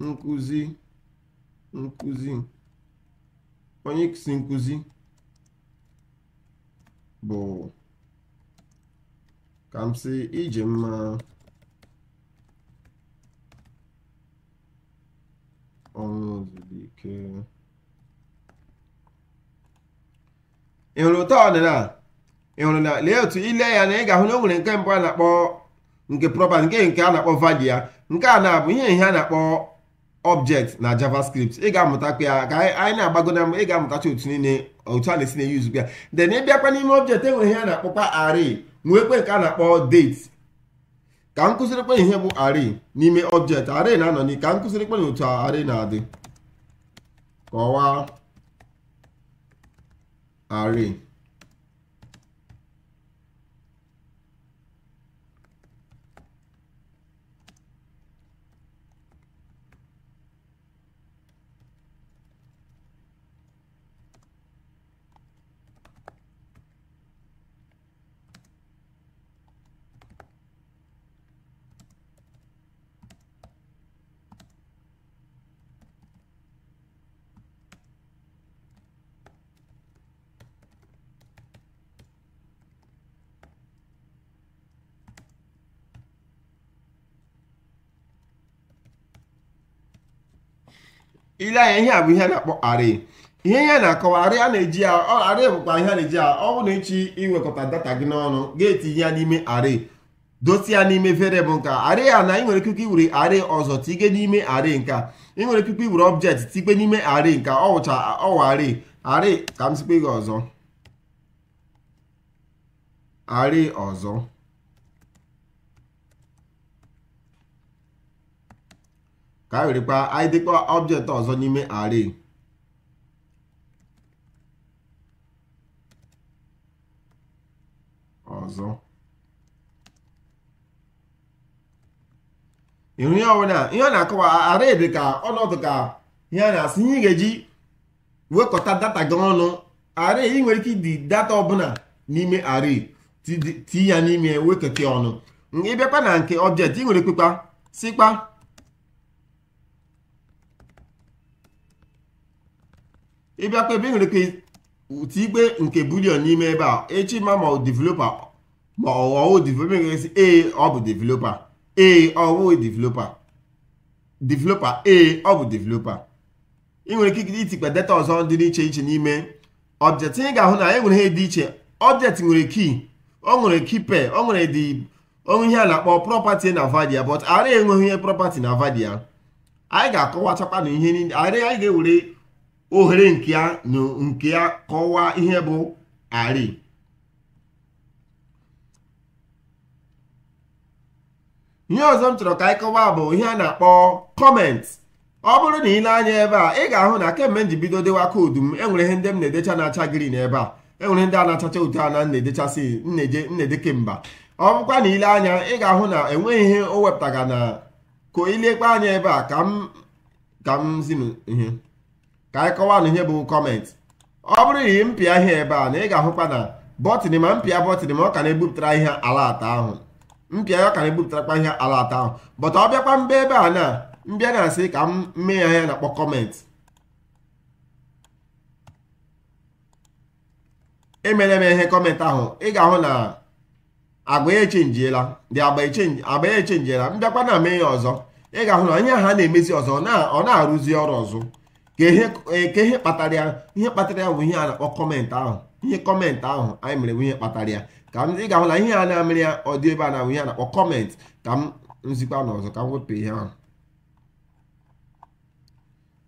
nkuzi isi nkụzi nkụzi bụ ka m sị ije mma ọnwụ ozugbo ike ị hụrụ ụtọ ọdịnala ị hụrụ na lee otu ile ya na ị ga-ahụ na o nwere nke mbụ a na-akpọ nke proper nke nke a na-akpọ value ya nke a na-abụ ihe ihe a na-akpọ object na javascript ị ga-amụta ya ka anyị na-agbago na mgbe ị ga-amụtacha otu niile otu a na-esi na-eyuzu ya then ị bịakwa n'ime object enwere ihe a na-akpọkwa array nwekwe nke a na-akpọ date ka m kụzirikwa ihe bụ ari n'ime object ari na-anọ n'i ka m kụzirikwa na otu ari na-adị kọwaa ari. ile anya ihe a bụ ihe a na-akpọ ari ihe ya na-akọwa ari a na-eji bụkwa ihe a na-eji a ọ bụ na echi iwekọta data gị n'ọnụ ga-etinye ya n'ime ari dosie ya n'ime bụ nka ari a na ị nwere ikuku iwere ọzọ tige n'ime ari nka ị nwere ikuku iwere object tikpe n'ime ari nka ọ wụcha ọwa ari ka m sikpe gị ọzọ ari ọzọ ka anyị werekwa anyị dịkwa ọbjektị ọzọ n'ime ari ọzọ ịhụ ihe ọbụla ihe ọ na-akọwa array dị ka ọnọdụ ka ihe a na-asị ihe ị ga-eji wekọta data gị ọnụ array ị nwere ike ịdị data ọbụla n'ime array ti ya n'ime wekọta ọnụ ịbịakwa na nke ọbjektị ị nwere kwekwa sikpa ịbịa kpebe nwere ike ụtụ ikpe nke bulion n'ime ebe a echi ma ma developa ma ọwụ developa ga-esi ee ọ bụ developa ee ọwụ developa developa ee ọ bụ developa ị nwere ike itikpe data ọzọ dị iche iche n'ime ọbjet ị ga-ahụ na e nwere ihe dị iche ọbjet nwere kii ọ nwere kipe ọ nwere dị onwe ihe a na-akpọ property na vadia but ara enweghị ihe property na vadia anyị ga-akọwachakwa na ihe niile anyị ga-ewere ohere nke ya na nke ya kọwaa ihe bụ ari. ihe ọzọ m chọrọ ka anyị kọwaa bụ ihe a na-akpọ kọment ọ bụrụ na ile anya ebe a ị ga-ahụ na kemgbe m ji bido dewa koodu m enwere ihe ndị m na-edecha na-acha green ebe a enwere ndị a na-achacha otu a na na-edechasị nneje kemba ọ bụkwa na ile anya ị ga-ahụ na enweghị ihe o wepụtaga na ka ilekwa anya ebe a ka m ka m ihe ka anyị kọwanụ ihe bụ kọmentị ọ bụrụ yi mpịa ihe ebe a na ị ga-ahụkwa na bọtịnị ma mpịa bọtịnị ma ọ ka na-ebupụtara ihe ala ahụ mpịa ya ọ ka na-ebupụtarakwa ihe ala ata ahụ bọta ọ bịakwa mba ebe a na mbịa na-asị ka m mee ya ihe na-akpọ kọmentị emere m ihe kọmentị ahụ ị ga-ahụ na agba echenjiela dị agba echenjiela mbịakwa na mee ya ọzọ ị ga-ahụ na onye ha na-emezi ọzọ ọ na-arụzi ọrụ ọzọ ka ihe kpatara ya ihe kpatara ya bụ ihe a na-akpọ kọmentị ahụ ihe kọmentị ahụ anyị mere bụ ihe kpatara ya ka m ị ga-ahụla ihe a na-amịrị ya ọ dị ebe a na-abụ ihe a na-akpọ kọmentị ka m nzikwa n'ọzọ ka m wepụ ihe ahụ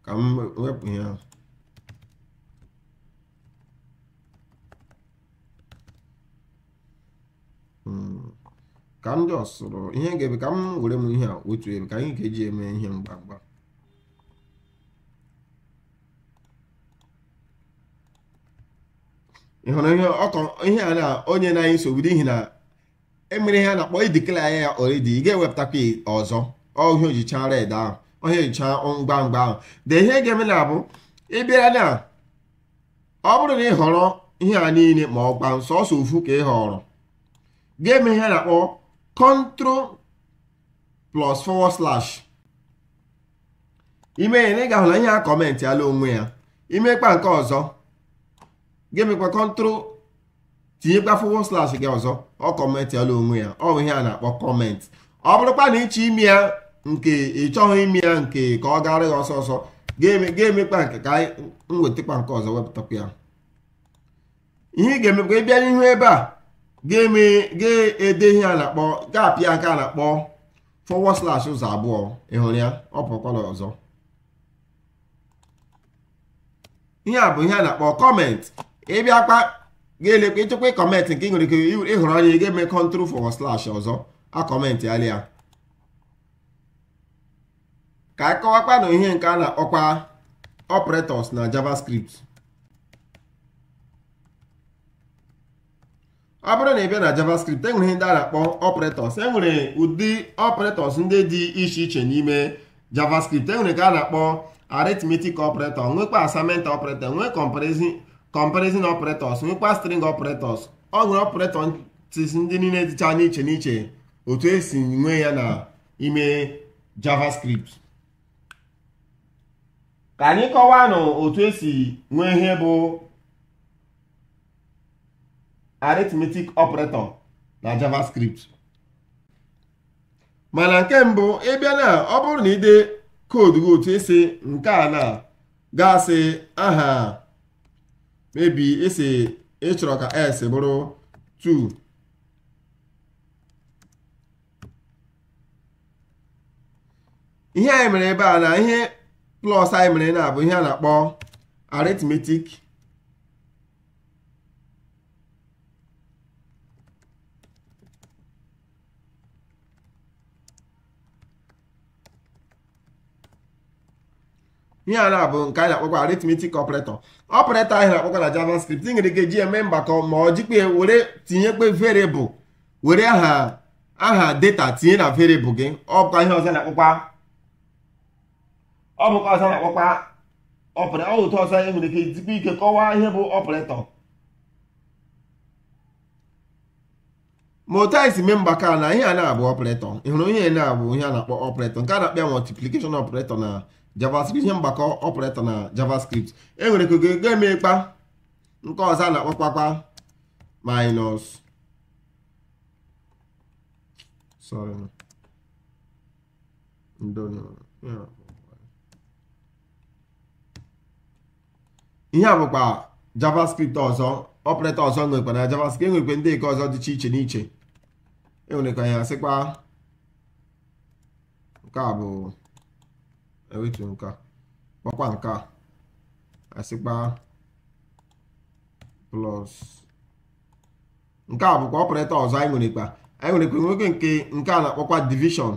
ka m wepụ ihe ahụ ka m jọsụrụ ihe ga-ebe ka m were m ihe a otu ebe ka anyị ga-eji eme ihe mgbamgba ị hụrụ ihe ọkọ ihe a na onye na anyị nsogbu n'ihi na emere ihe a na-akpọ idikla ya ya oredi ị ga-ewepụtakwa ọzọ ọhịa ojicha red ahụ ọhịa ojicha ngwa ngwa ahụ de ihe ga-eme na abụ ị bịara na ọ bụrụ na ị họrọ ihe a niile ma ọ gba ọsọ ofu ka ị họrọ ga-eme ihe a na-akpọ control slash ime na ị ga-ahụ na ihe a kọmentị ala onwe ya imekpa nke ọzọ gị mekwa kọntrol tinyekwa fọwọ slash gị ọzọ ọ kọmentị kọmentịala onwe ya ọ bụ ihe a na-akpọ kọment ọ bụrụkwa na ịchọ ime ya nke ịchọghị ime ya nke ka ọ gara ya ọsọ ọsọ ga-emekpa nke ka anyị nke ọzọ wepụtakwa ya ihe ị ga-emekwa ịbịa n'ihu ebe a ga-ede ihe a na-akpọ gaapị nke a na-akpọ forward slash ụzọ abụọ ịhụrụ ya ọ pụkwala ọzọ ihe a bụ ihe a na-akpọ kọment ịbịakwa ga-elekwa ịchekwa kọmentị nke nwere ike ịhụrụ anya ị ga-eme kọntrol fọwọ slash ọzọ akọmentị ala ya ka akọwakwa na ihe nke a na-akpọkwa operators na javascript ọ bụrụ na ị bịa na javascript enwere ihe ndị a na-akpọ operators enwere ụdị operators ndị dị iche iche n'ime javascript enwere ka a na-akpọ arithmetic operator nwekwa assignment operator nwee comparison comparison operators nwekwa string operators ọ nwere operator ndị niile dịcha n'iche n'iche otu esi nwe ya na ime javascript ka anyị kọwaa nụ otu esi nwee ihe bụ arithmetic operator na javascript mana nke mbụ ịbịa na ọ bụrụ na ide koodu otu esi nke a na gasị aha maybe esi ị chọrọ ka s bụrụ 2 ihe anyị mere ebe a na ihe plus anyị mere na abụ ihe a na-akpọ arithmetic ihe a na-abụ nke a na-akpọkwa arithmetic operator ọpụreta ahịa na-akpọkọ na javascript ị nwere ike ji eme mbakọ ma ọ jikpe were tinyekpe variable were aha aha data tinye na variable gị ọ ihe ọzọ na-akpọkwa ọ bụkwa ọzọ na-akpọkwa ọ ụtọ ọzọ e nwere ike jikwa ike kọwaa ihe bụ ọpụretọ ma otu anyị e si mee mgbakọ na ihe a na-abụ ọpụretọ ị ihe na-abụ ihe a na-akpọ ọpụretọ nke a na-akpọ ya multiplication ọpụretọ na javascript ihe mgbakọ ọpụreta na javascript enwere ka ogego emekpa nke ọzọ a na-akpọkpakpa minus sorry ihe a bụkwa javascript ọzọ ọpụreta ọzọ nwekwa na javascript enwekwe ndị eke ọzọ dịcha iche n'iche enwere ka ya sịkwa nke a bụ ewetu nke a kpakwa nke a asịkpa plus nke a bụkwa ọpụreta ọzọ anyị nwere nwerekwa anyị nwere nwerekwa nwoke nke nke a na-akpọkwa division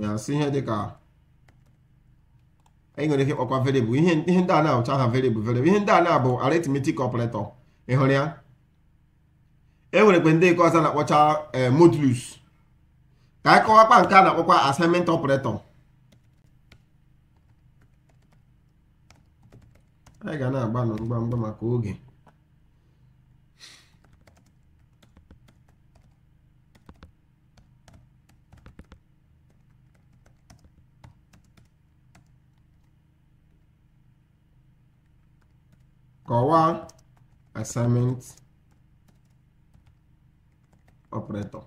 ya si ihe dịka anyị nwere ike ịkpọkwa variable ihe ndị a na-ahụcha ha variable variable ihe ndị a na-abụ arithmetic operator ị hụrụ ya e nwerekwa ndị nke ọzọ na-akpọcha eh, modulus ka anyị kọwakwa nke a na-akpọkwa assignment operator anyị ga na-agbanụ mgbamgba maka oge kọwaa assignment operator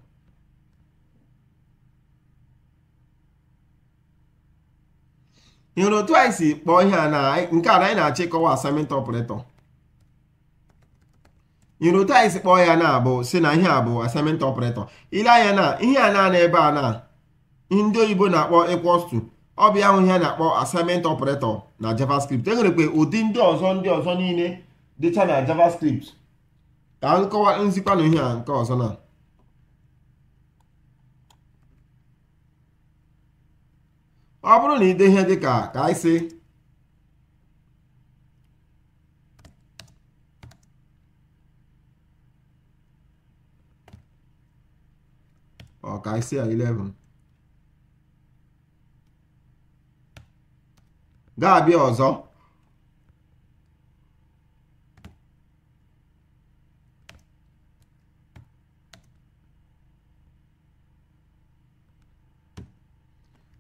nwere otu anyị si kpọọ ihe a na nke a na anyị na-achọ ịkọwa otu anyị si kpọọ ya na abụ si na ihe a bụ assignment operator ile anya na ihe a na-ana ebe a na ndị oyibo na-akpọ equals ọbịa ọ ihe a na-akpọ assignment ọpụretọ na javascript enwerekwe ụdị ndị ọzọ ndị ọzọ niile dịcha na javascript ka nkọwa nzikwa ihe a nke ọzọ na Ó, Bruninho, deixa de cá. Cai se Ó, cai C aí, levando. Gabi, ó, só.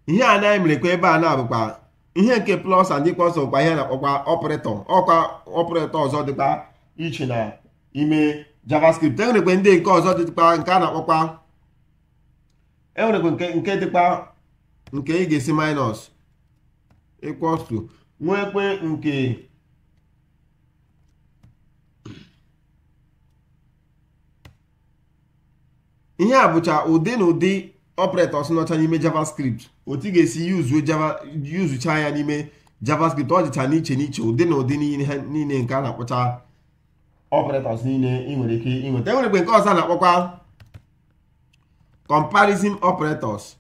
ihe a anyị mere kwa ebe a na-abụkwa ihe nke plus and equals bụkwa ihe na-akpọkwa ọpụrịtọ ọkwa ọpụrịtọ ọzọ dịkwa iche na ime javascript enwerekwe ndị nke ọzọ dịkwa nke a na-akpọkwa enwerekwe nke nke dịkwa nke ị ga-esi minus equals to nwekwe nke ihe a bụcha ụdị na ụdị operators nọcha n'ime javascript otu ị ga-esi yuzucha ya n'ime javascript ọ dịcha n'iche n'iche ụdị na ụdị niile nke a na akpụcha operators niile ị nwere ike ịnweta enwerekwe nke ọzọ na-akpọkwa comparison operators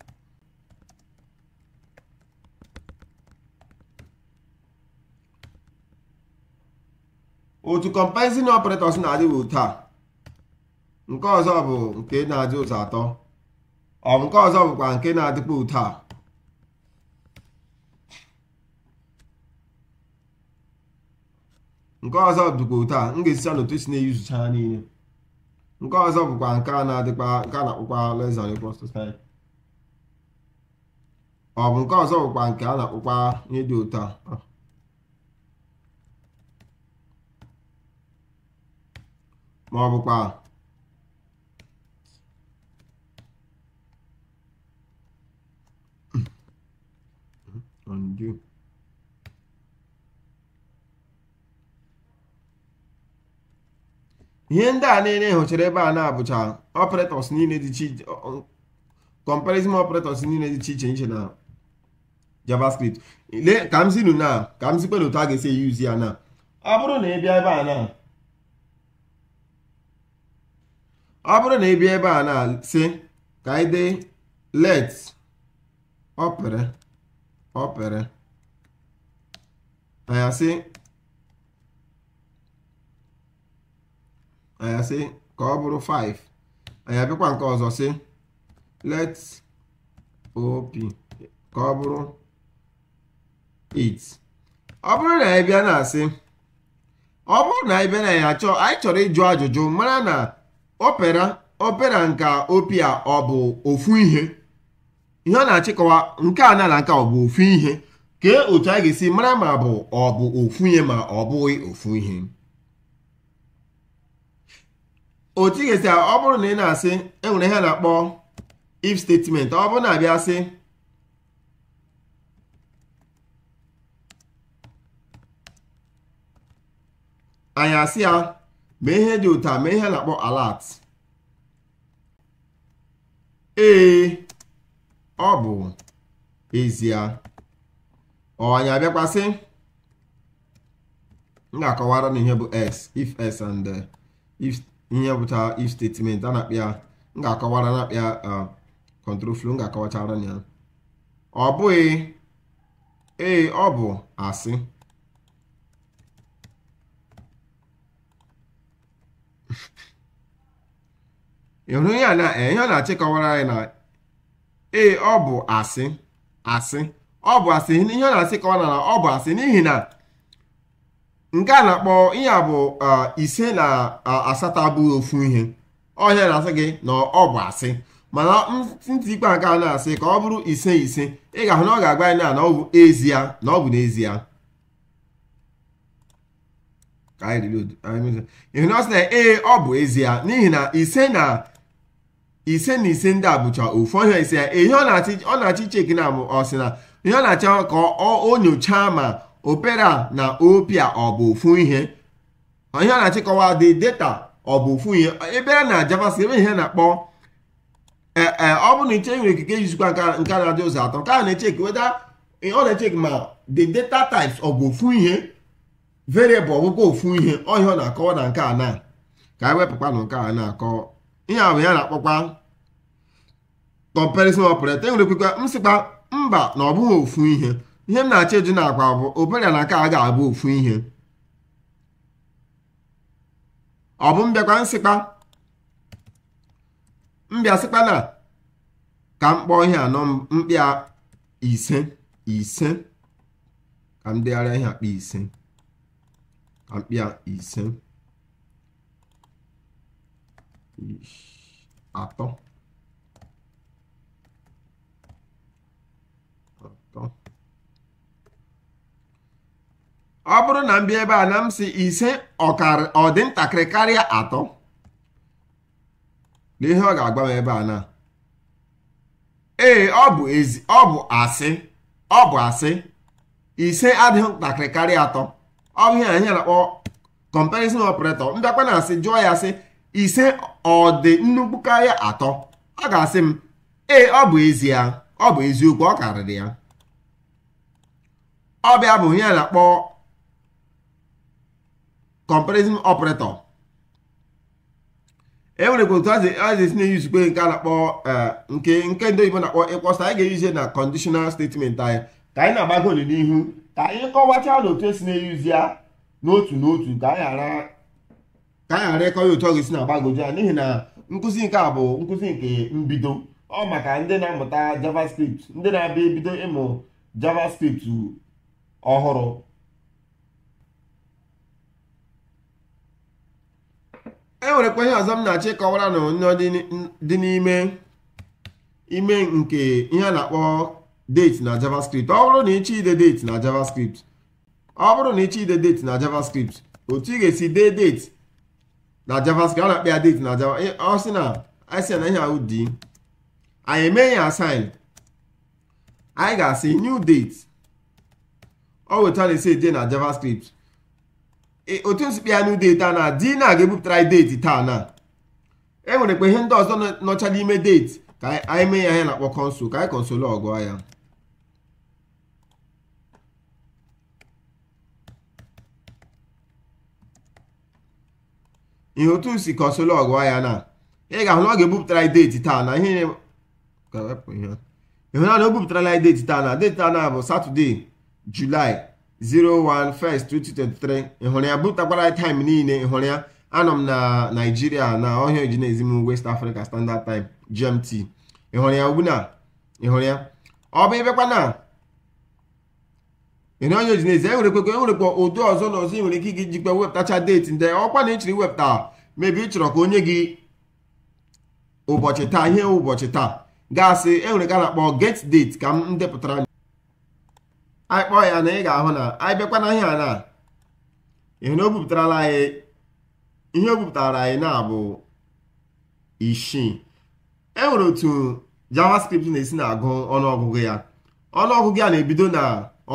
otu comparison operators na taa nke ọzọ bụ nke na-adị ụzọ atọ ọ nke ọzọ bụkwa nke na-adịkwa ụtọ nke ọzọ dịkwa ụtọ m ga n'otu si na-eyuzucha ha niile nke ọzọ bụkwa nke a na-adịkwa nke a na-akpọkwa ọ bụ nke ọzọ nke a na-akpọkwa ihe dị ụtọ a ma ọ bụkwa ihe ndị a niile e hụchara ebe a na-abụcha operators niile dị iche comparison operators niile dị iche iche iche na javascript ka m zinu na ka m zikpere otu a ga-esi yuzi e ya na ọ bụrụ na ị bịa ebe a na ọ bụrụ na ị bịa ebe a na si ka anyị dee let opere opere a asị anya sị ka ọ bụrụ 5 anya bịakwa nke ọzọ sị let op ka ọ bụrụ 8 ọ bụrụ na anyị bịa na-asị ọ bụrụ na anyị bịa na ya chọọ anyị chọrọ ịjụ ajụjụ mara na opera opera nke opia ọ bụ ofu ihe ihe ọ na-achịkọwa nke a na nke ọ bụ ofu ihe kee otu a ga-esi mara ma ọ bụ ofu ihe ma ọ bụghị ofu ihe otu ị ga-esi ọ bụrụ na ị na-asị enwere ihe na-akpọ if statement ọ bụrụ na abịa sị anyị asị ya ma ihe dị ụta ma ihe na-akpọ alert ee ọ bụ ezie ọ anyị abịakwasị m ga-akọwara na ihe bụ s if s and uh, ihe bụta if statement a na-akpịa m ga-akọwara na-akpịa control flow m ga-akọwachara ya ọ bụghị ee ọ bụ asị ịhụrụ eh, ihe ọ na-achị kọwara anyị na ee ọ bụ asị asị ọ bụ asị ihe ọ na-asị kọwara na ọ bụ asị n'ihi na nke a na-akpọ ihe a bụ uh, ise na uh, asatọ abụghị ofu ihe ọhịa na-asị gị na ọ bụ asị mana ntị ikpe nke a na-asị ka ọ bụrụ ise ise ị ga-ahụ na ọ ga-agwa anyị na ọ bụ ezie na ọ bụ n'ezie ịhụ na ọ sị na ee ọ bụ ezie n'ihi na ise na ise na ise ndị a bụcha ofu ọhịa ise ya ihe ọ na-achị cheki na ọ sị na ihe ọ na-achọ ka ọ nyochaa ma opera na opia ọ bụ ofu ihe ihe a na-achịkọwa dị data ọ bụ ofu ihe ebere na javascript ebe ihe na-akpọ ee e, ọ bụ na iche nwere ikike ijikwa nke na-adị ụzọ atọ nke a na-echeki weda ọ na-echeki ma the data types ọ bụ ofu ihe variable ọbụkwa ofu ihe ọhịa ọ na-akọwa na nke a na ka anyị wepụkwa na nke a na-akọ ihe abụ ya na-akpọkwa comparison operator enwere kwekwa m sịkwa mba na ọ bụghị ofu ihe ihe m na-achọ na n'akwa bụ obere na aka a ga-abụ ofu ihe ọ bụ mbịakwa nsịkpa mbịa sịkpa na ka m kpọọ ihe anọ mkpịa ise ise ka m degharịa ihe akpa ise ka mkpịa ise atọ ọ bụrụ na m bịa ebe a na m si ise ọ dị ntakịrị karịa atọ na ihe ọ ga-agwa m ebe a na ee ọ bụ ezi ọ bụ asị ọ bụ asị ise adịghị ntakịrị karịa atọ ọ bụ ihe anyị na-akpọ comparison operator mbịakwa na asị jụọ ya sị ise ọdị nnukwu karịa atọ ọ ga-asị m ee ọ bụ ya ọ bụ eziokwu ọ karịrị ya ọ bụ ihe a na-akpọ comparison operator e nwere otu a ga-esi na-eyuzi nke a na-akpọ eh, nke nke ndị oyibo na-akpọ ịkpọsa anyị ga-eyuzi na conditional statement anyị ka anyị na-agbago n'ihu ka anyị kọwacha na otu esi na-eyuzi ya n'otu n'otu ka anyị ghara ịkọ ya otu ọ ga-esi na-agbagoju ya n'ihi na nkụzi nke a bụ nkụzi nke mbido ọ maka ndị na-amụta javascript ndị na-abịa ebido ịmụ javascript ọhụrụ e nwerekwa ihe ọzọ m na-achọ ịkọwara na onyo dị n'ime ime nke ihe a na-akpọ date na javascript ọ bụrụ na ịchọ ide date na javascript ọ bụrụ na ịchọ ide date na javascript otu ị ga-esi dee date na javascript ọ na-akpa ya date na java ọ sị na asị na ihe ahụ dị anyị eme ya assign anyị ga-asị new date ọ weta na-esi eje na javascript E, otu nsukpịanụ deeti a na di na ga-ebupụtara anyị deeti taa na e nwere kpe ihe ndị ọzọ nọcha n'ime deeti ka anyị mee ya ya na-akpọ kọnsụl ka anyị kọnsụl ọgụọ ya ihe otu si kọnsụl ọgụọ ya na ị ga-ahụ na ọ ga-ebupụtara anyị deeti taa na ihe ịhụna na o bupụtara anyị deeti taa na deeti taa na bụ satọde julaị 01/1/2023 ị hụrụ ya bụtakwara taịm niile ị ya anọ m na naijiria na ọhịa ojinezi m west africa standard time gmt ị ya ugbuna na. hụrụ ya ọ bụ ịbịakwa na ịhụrụ ọhịa ojinezi enwerekwa enwerekwa ụdị ọzọ na ọzọ ị nwere ike iji jikwa wepụtacha deeti ndị ọkwa na ịchịrị wepụta mebi ịchọrọ chọrọ ka onye gị ụbọchị taa ihe ụbọchị taa gaasị enwere ka na-akpọ get date ka m depụtara anyị kpọọ ya na ị ga-ahụ na anyị bịakwa na ihe a na ihe na o bupụtarala anyị ihe o bupụtara anyị na-abụ isii e nwere otu javascript na-esi na-agụ ọnụọgụgụ ya ọnụọgụgụ ya na-ebido na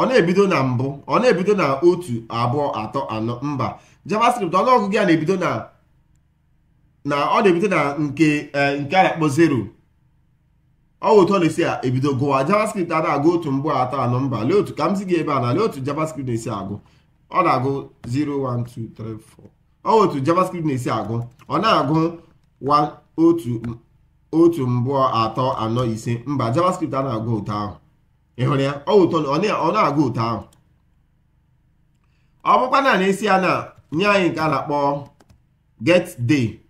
ọ na-ebido na mbụ ọ na-ebido na otu abụọ atọ anọ mba javascript ọnụọgụgụ ya na-ebido na na ọ na-ebido na nke eh, nke a akpọ zero ọ otu ọ na-esi ebido gụwa javascript a na-agụ otu mgbe atọ anọ mba lee otu ka m si gị ebe a na lee otu javascript na-esi agụ ọ na-agụ 01234 ọ otu javascript na-esi agụ ọ na-agụ otu mbụọ atọ anọ ise mba javascript a na-agụ ụtọ ahụ ị hụrụ ya ọ na-agụ ụtọ ahụ ọ bụkwa na na-esi ya na nye anyị nke a na-akpọ get day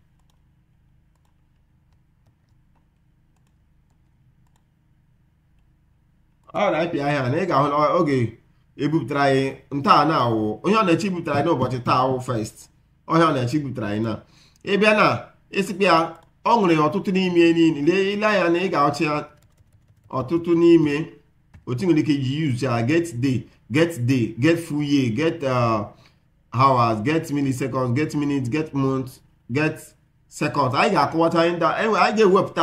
ọ na-apị ahịa na ị ga-ahụ na oge ebupụtara anyị ntaa na awụ onye ọ na-eche bupụtara anyị n'ụbọchị taa awụ first ọhịa ọ na-eche bupụtara anyị na ịbịa na ịsịkpa ya ọ ṅụrụ ọtụtụ n'ime niile ile anya na ị ga-achị ọtụtụ n'ime otu nwere ike iji use ya get day get day get full year get uh, hours get milliseconds get minutes get months get seconds anyị ga-akọwata e anyị ga-ewepụta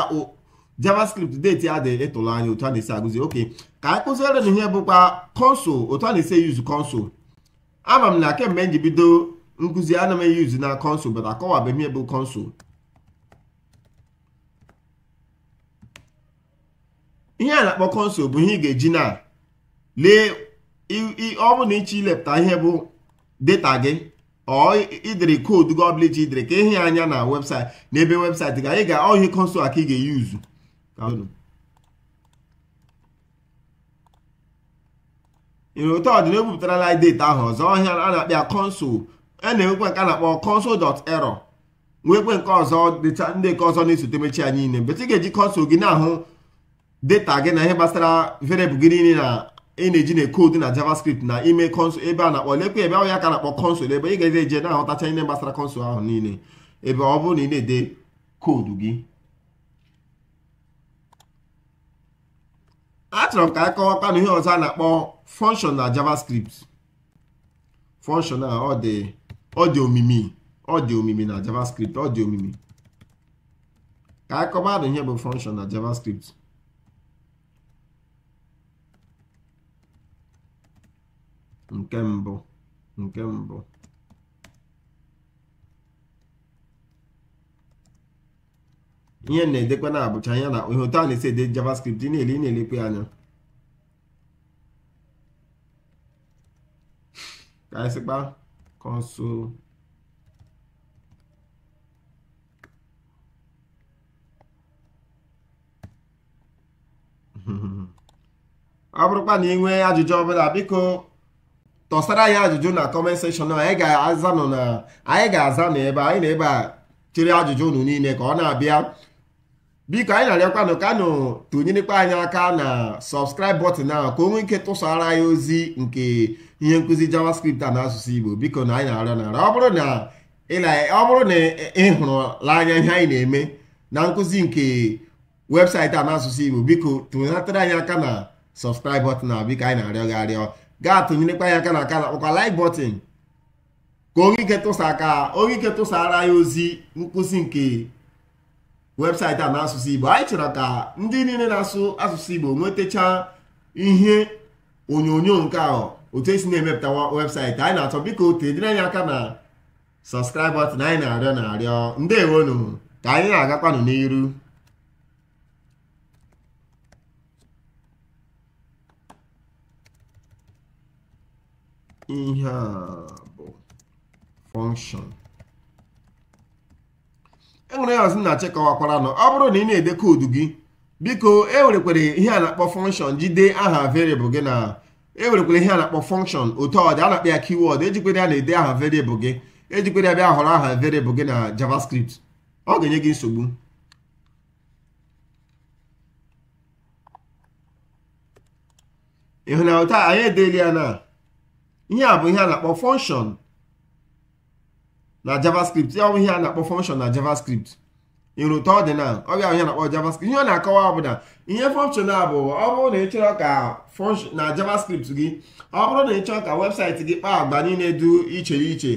javascript deti a dị ịtụlụ anya otu a na-esi agụzi oke ka anyị kụziere na ihe bụkwa konsol otu a na-esi eyuzu konsol ama m na kemgbe m ji bido nkụzi ana m eyuzu na konsụl bata akọwabeghị ihe bụ ihe a na-akpọ konsụl bụ ihe ị ga-eji na lee ọ bụ na ịchọ ilepụta ihe bụ data gị ọ idere koodu gọbl iji idere ka ịhị anya na webụsaịtị na ebe webụsaịtị ga anyị ga ọhị konsol aka ị ga-eyuzu ịrụtọ pụtara ebupụtarala data ahụ ọzọ ọhịa a na-akpịa kọnsụl a e na nke a na-akpọ kọnsụl dọt erọ nwekwe nke ọzọ ndị nke ọzọ na-esote mechi ya niile mgbe ị ga-eji kọnsụl gị na-ahụ data gị na ihe gbasara variable gị niile na ị na-eji na koodu na javascript na ime kọnsụl ebe a na-akpọ lekwe ebe ahụ ya ka na-akpọ kọnsụl ebe ị ga-eje na-ahụtacha ihe gbasara kọnsụl ahụ niile ebe ọ bụrụ na ị na-ede koodu gị achọrọ m ka a kọwakwa na ihe ọzọ a na-akpọ function na javascript function na ọ dị ọ dị omimi ọ dị omimi na javascript ọ dị omimi ka a kọwa na ihe bụ function na javascript nke mbụ nke mbụ ihe na-edekwa na-abụcha ya na ihe otu a na-esi ede javascript ị na-ele ị na-elekwe anya ka anyị sịkpa console ọ bụrụkwa na ị nwee ajụjụ ọbụla biko tọsara anyị ajụjụ na kọment sekshọn anyị ga-aza nọ na anyị ga-aza na ebe anyị na ebe a ajụjụ unu niile ka ọ na-abịa biko anyị na-arịọkwanụ kanụ tụnyerekwa anyị aka na subscribe button ahụ ka o nwee ike tụsara anyị ozi nke ihe nkụzi javascript a na asụsụ igbo biko na anyị na-arịọ ọ bụrụ na ịhụrụ anya ihe anyị na-eme na nkụzi nke webụsaịtị a na asụsụ igbo biko tụnatara anyị aka na subscribe button a biko anyị na-arịọ gị arịọ gaa tụnyerekwa anyị aka na aka na akpọkwa like button ka nwee ike tụsa aka onye ike tụsara anyị ozi nkụzi nke webụsaịtị a na n'asụsụ igbo anyị chọrọ ka ndị niile na-asụ asụsụ igbo nwetachaa ihe onyonyo nke ahụ otu esi na-emepụta webụsaịtị anyị na-achọ biko tenyere anyị aka na sọskraịb anyị na-arịọ na-arịọ ewenu ka anyị na-agakwanụ n'iru ihe a bụ function enwere ya ọzi na chekọwakwara nọ ọ bụrụ na ị na-ede koodu gị biko ewerekwere ihe a na-akpọ fọnkshọn jide aha variable gị na ewerekwere ihe a na-akpọ fọnkshọn otu ọ dị a na-akpọ ya ejikwere e ya na-ede aha variable gị ejikwere ya bịa họrọ aha variable gị na javascript ọ ga-enye gị nsogbu ịhụ na ụta anyị edeela ya na ihe a bụ ihe a na-akpọ fọnkshọn na javascript ya ọbụghị a na-akpọ function na javascript ịrụta ọdịnal ọ ga ahụhịa na-akpọ javascript ihe ọ na-akọwa bụ na ihe function a bụ ọ bụrụ na ị chọrọ ka na javascript gị ọ bụrụ na ị chọrọ ka webụsaịtị gị kpaa agba niile dị iche iche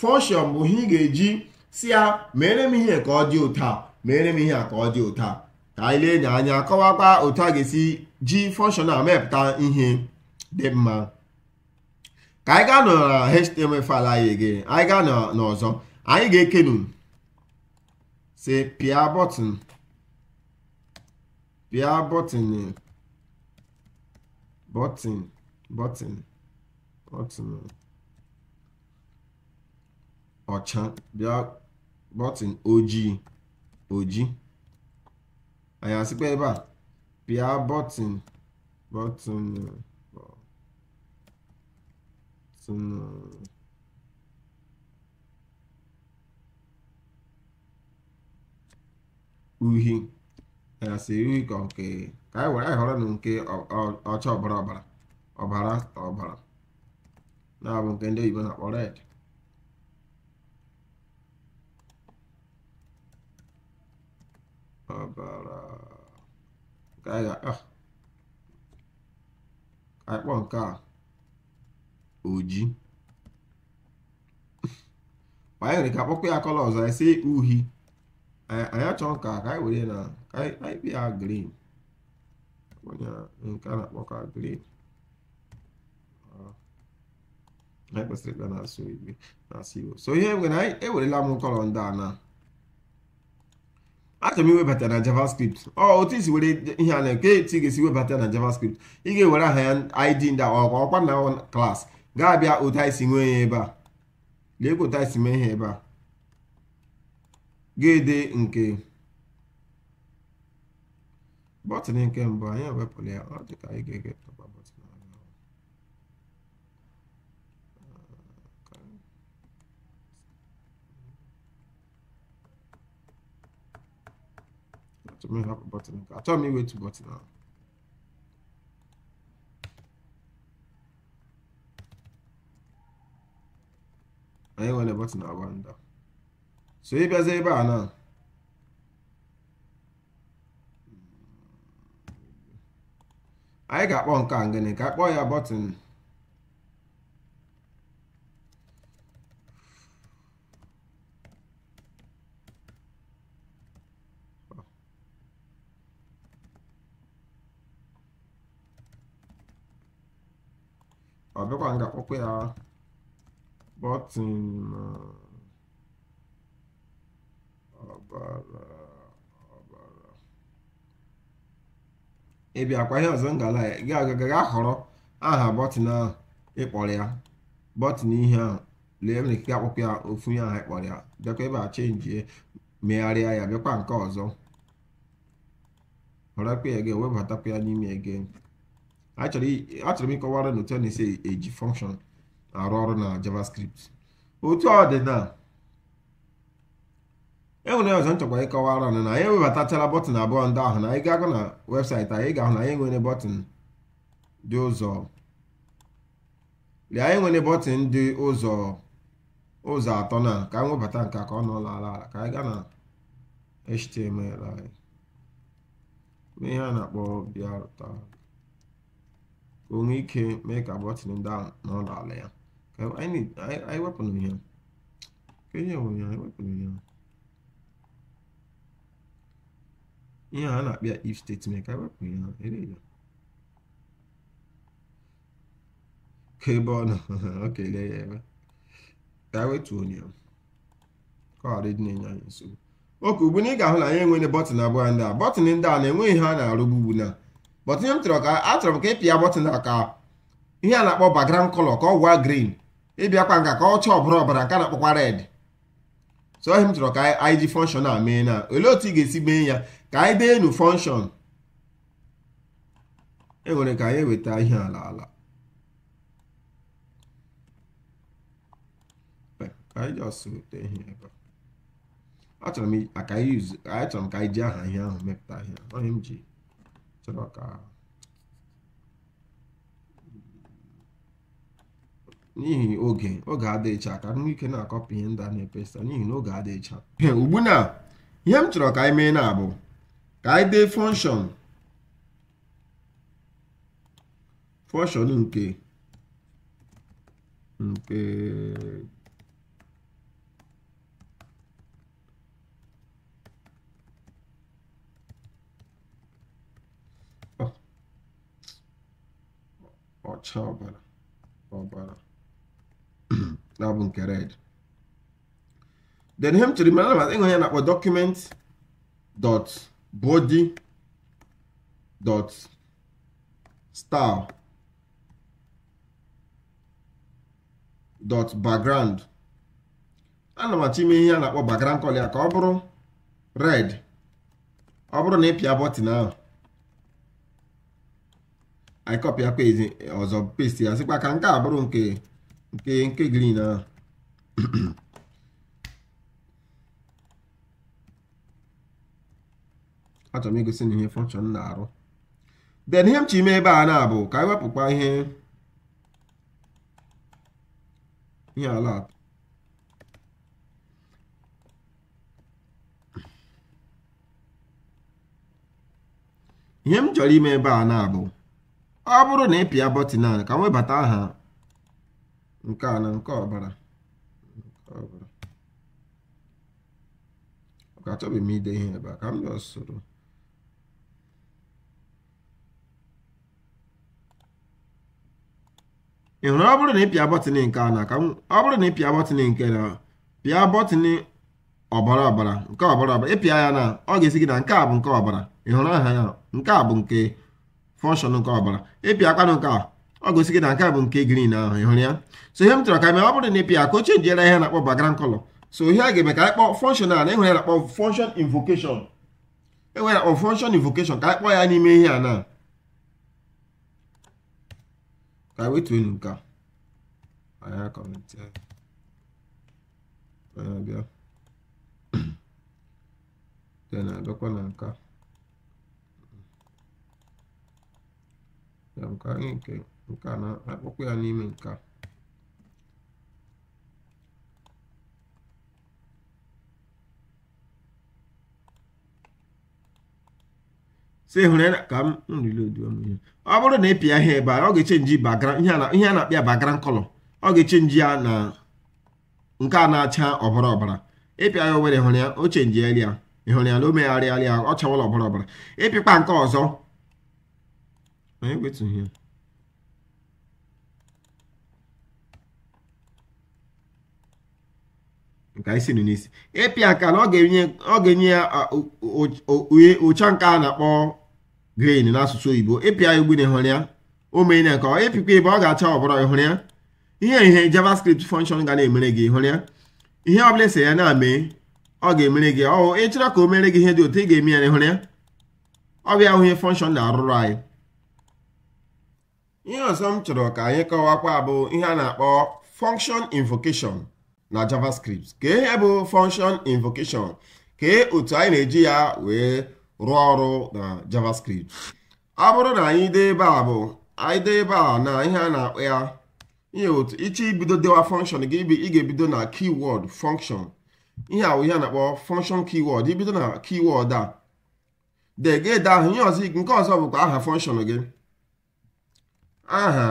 function bụ ihe ị ga-eji si ya mere m ihe ka ọ dị ụta meere mere m ihe a ka ọ dị ụta ka anyị lee anya kọwakwa otu a ga-esi ji function a mepụta ihe dị mma ka anyị gaa na html faịlụ anyị again anyị gaa n'ọzọ anyị ga-ekenu si pịa bọtịn pịa bọtịn bọtịn bọtịn bọtịn ọcha bịa bọtịn ojii ojii anyị asịkwa ebe a pịa bọtịn bọtịn Hmm. uhi ya si uhi ka nke ka anyị were anyị họrọ na nke ọcha ọbara ọbara ọbara ọbara na-abụ nke ndị oyibo na-akpọ red ọbara ka anyị ga-akpọ nke a oji banyere ka akpọkọ ya kọlọ ọzọ anyị si uhi anyị achọọ nka ka anyị were na anyị ya grin nke a na-akpọ ka grin anyị kwesịrị ịkpa na-asụ igbe na-asụ igbo so ihe mgbe anyị ewerela m kọlọ ndị a na achọrọ m iwebata na javascript ọ otu isi were ihe a na-eke etu ị ga-esi webata na javascript ị ga-ewere aha ya id ndị ọkwa na klaasị ga-abịa ụta isi nwee ya ebe a lee ka ụta isi mee ha ebe a ga-ede nke bọtịn nke mbụ anyị ewepụrụ ya ọ dịka ka anyị ga-ege tọkwa bọtịn m iwetu bọtịn ahụ anyị nwere na agba ndụ so ịbịazi ebe a na anyị ga-akpọ nke a ngịnị ka akpọ ya bọtịn ọ bịakwa nga ya Kpọtịm ọbara eh, ọbara. Ị bịakwa ihe ọzọ ngala ya gaa họrọ aha bọtịn ahụ ịkpọrọ ya bọtịn ihe ahụ lee nwere ike akpọkọ ya ofu ihe ahụ ịkpọrọ ya bịakwa ebe a chenjie megharịa ya bịakwa nke ọzọ họrọkwa ya ga-ewebatakwa ya n'ime ege achọrọ m ịkọwara n'otu a na-esi eji fọnkshọn arụ ọrụ na JavaScript otu ọ dị na enwere ọzọ nchọkwa ịkọwara na na anyị ewebatachala bọtụn abụọ ndị ahụ na anyị ga-agụ na webụsaịtị anyị ga-ahụ na anyị nwere bọtụn dị ụzọ lee anyị nwere bọtịn dị ụzọ ụzọ atọ na ka anyị nke ka ọ nọ ala ala ka anyị gaa na HTML anyị ihe a na-akpọ bịa ka o nwee ike mee ka bọtịn ndị ahụ n'ụlọ ala ya I need I, I weapon punya. Kayaknya punya I weapon if statement I weapon punya. Ini aja. Kebon. ya. I wait to on you. Ka na nya nso. Oke ugbu na ị ga-ahụ na abụọ ndị a. Bọtịn ndị a na-enweghị ihe a na-arụgbu m tụrụ ka achọrọ m ka ị pịa ka ihe a na-akpọ background color ka ọ gwa green. ịbịakwa nka ka ọcha ọbara ọbara nke na-akpọkwa red so ohi m chọrọ ka anyị ji fọnshọn a mee na olee otu ị ga-esi mee ya ka anyị dee nu fọnshọn enwere ka anyị eweta ihe ala ala achọrọ m ka anyị ji aha ihe ahụ mepụta ihe ohi m ji chọrọ ka n'ihi oge oge adịghịcha ka nwa ike na-akọpụ ihe ndị a na-epesa n'ihi na oge adịghịcha ugbu na ihe m chọrọ ka anyị mee na bụ ka anyị dee fọnshọn fọnshọn nke nke ọcha ọbara ọbara na bụ nke red then him m chere mere anabata ịhụ ya na-akpọ document dot body dot style dot background ana m achọ ime ihe a na-akpọ background color ya ka ọ bụrụ red ọ bụrụ na ịpịa pịa bọtịn ahụ anyị kọpịa page ọzọ paste ya sịkwa ka nke a bụrụ nke nke nke green ahụ achọrọ m igosi na ihe function na-arụ then ihe m chi ime ebe a na-abụ ka anyị wepụkwa ihe ihe ala ihe m chọrọ ime ebe a na-abụ ọ bụrụ na ị pịa bọtịn a ka m webata aha nke a na nke ọbara ka achọghị m ide ihe ebe a ka m bịa soro ị hụrụ ọ bụrụ na ịpịa pịa bọtịn nke a na ka ọ bụrụ na ịpịa pịa bọtịn nke na pịa bọtịn ọbara ọbara nke ọbara ọbara ịpịa ya na ọ ga-esi gị na nke a bụ nke ọbara ị hụrụ aha ya nke a bụ nke fọnshọn nke ọbara ịpịa ịpịakwanụ nke a ọ gosigi na nke a bụ nke green ahụ ị hụrụ ya so ihe m chọrọ ka mee ọ bụrụ na ịpịa ka o chenjiela ihe na-akpọ background color so ihe a ga-eme ka anyị kpọọ functional na enwere akpọ function invocation enwere akpọ function invocation ka anyị kpọọ ya n'ime ihe a na ka anyị wetuo enu nke a na nka ya nke anyị nke nke a na akpụkpọ ya n'ime nke si hụrụ ya ka m rilodu ihe ọ bụrụ na ịpịa pịa ihe ebe a ọ ga-echenji ihe a na-akpịa background color ọ ga-echenji ya na nke a na-acha ọbara ọbara ịpịa ya obere hụrụ ya o chenji eri ya ịhụrụ ya na o megharịarị ya ọ chawala ọbara ọbara ịpịkpa nke ọzọ anyị wetụghị ya nke anyị siri n'isi ịpị aka na ọ ga-enye ya ụcha nke a na-akpọ grain n'asụsụ oyibo ịpịa ya ogbene hụrụ ya o mee ya ịpịkwa ebe ọ ga-acha ọbụrụ hụrụ ya ihe ihe javascript function ga na-emere gị hụrụ ya ihe ọ bụla ese ya na-amee ọ ga-emere gị ọ ịchọrọ ka o mere gị ihe dị otu ị ga-eme ya hụrụ ya ọ bịa ihe na-arụrụ anyị ihe ọzọ m chọrọ ka anyị kọwakwa bụ ihe a na-akpọ function invocation na javascript kee ihe bụ function invocation kee otu anyị na-eji ya wee rụọ ọrụ na javascript ọ bụrụ na anyị dee ebe a bụ anyị dee ebe a na ihe a na-akpọ ya ihe otu ịchọ ibido dewa function gị ị ga-ebido na keyword function ihe a ihe a na-akpọ function keyword ibido na keyword a de gede ahụ ihe ọzọ nke ọzọ bụkwa aha function gị aha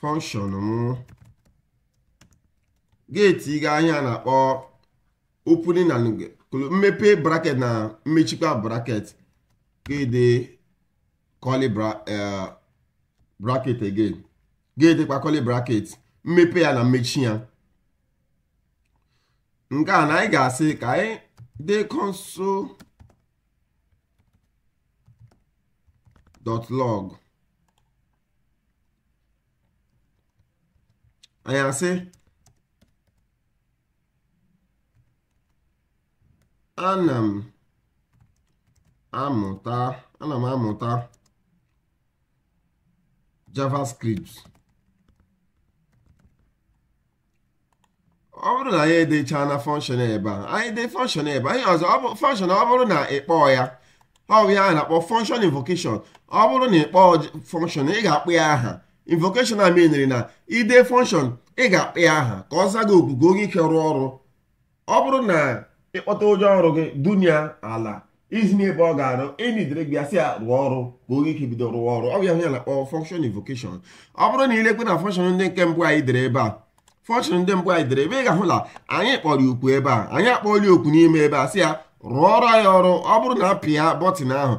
function m geeti ga anya na-akpọ opening and mmepe braket na mmechikwa braket gede curly braket eh, again gedekwa curly bracket mmepe ya na mmechi ya nke a na anyị ga-asị ka anyị dee console dot log anyị asị ana m amụta ana m amụta javascript ọ bụrụ na anyị edecha na function ebe a anyị dee function ebe a anyị ọzọ function ọ bụrụ na ị kpọọ ya ọ bụ ya a na-akpọ function invocation ọ bụrụ na ị kpọọ function ị ga akpụ ya aha invocation a menere na ide function ị ga akpụ ya aha ka ọ zaa gị oku ka onye ike rụọ ọrụ ọ bụrụ na ịkpọta ụjọ ọrụ gị dunya ala izinye ebe ọ ga-arụ enidere gị asị ya rụọ ọrụ ka oge ike bido rụọ ọrụ ọ ya na kpọrọ function invocation ọ bụrụ na ilekwe na function ndị nke mbụ anyị dere ebe a function ndị mbụ anyị dere ebe ị ga-ahụ na anyị kpọrọ okwu ebe a anyị akpọọla okwu n'ime ebe a sị ya ọrụ anyị ọrụ ọ bụrụ na apịa bọtịn ahụ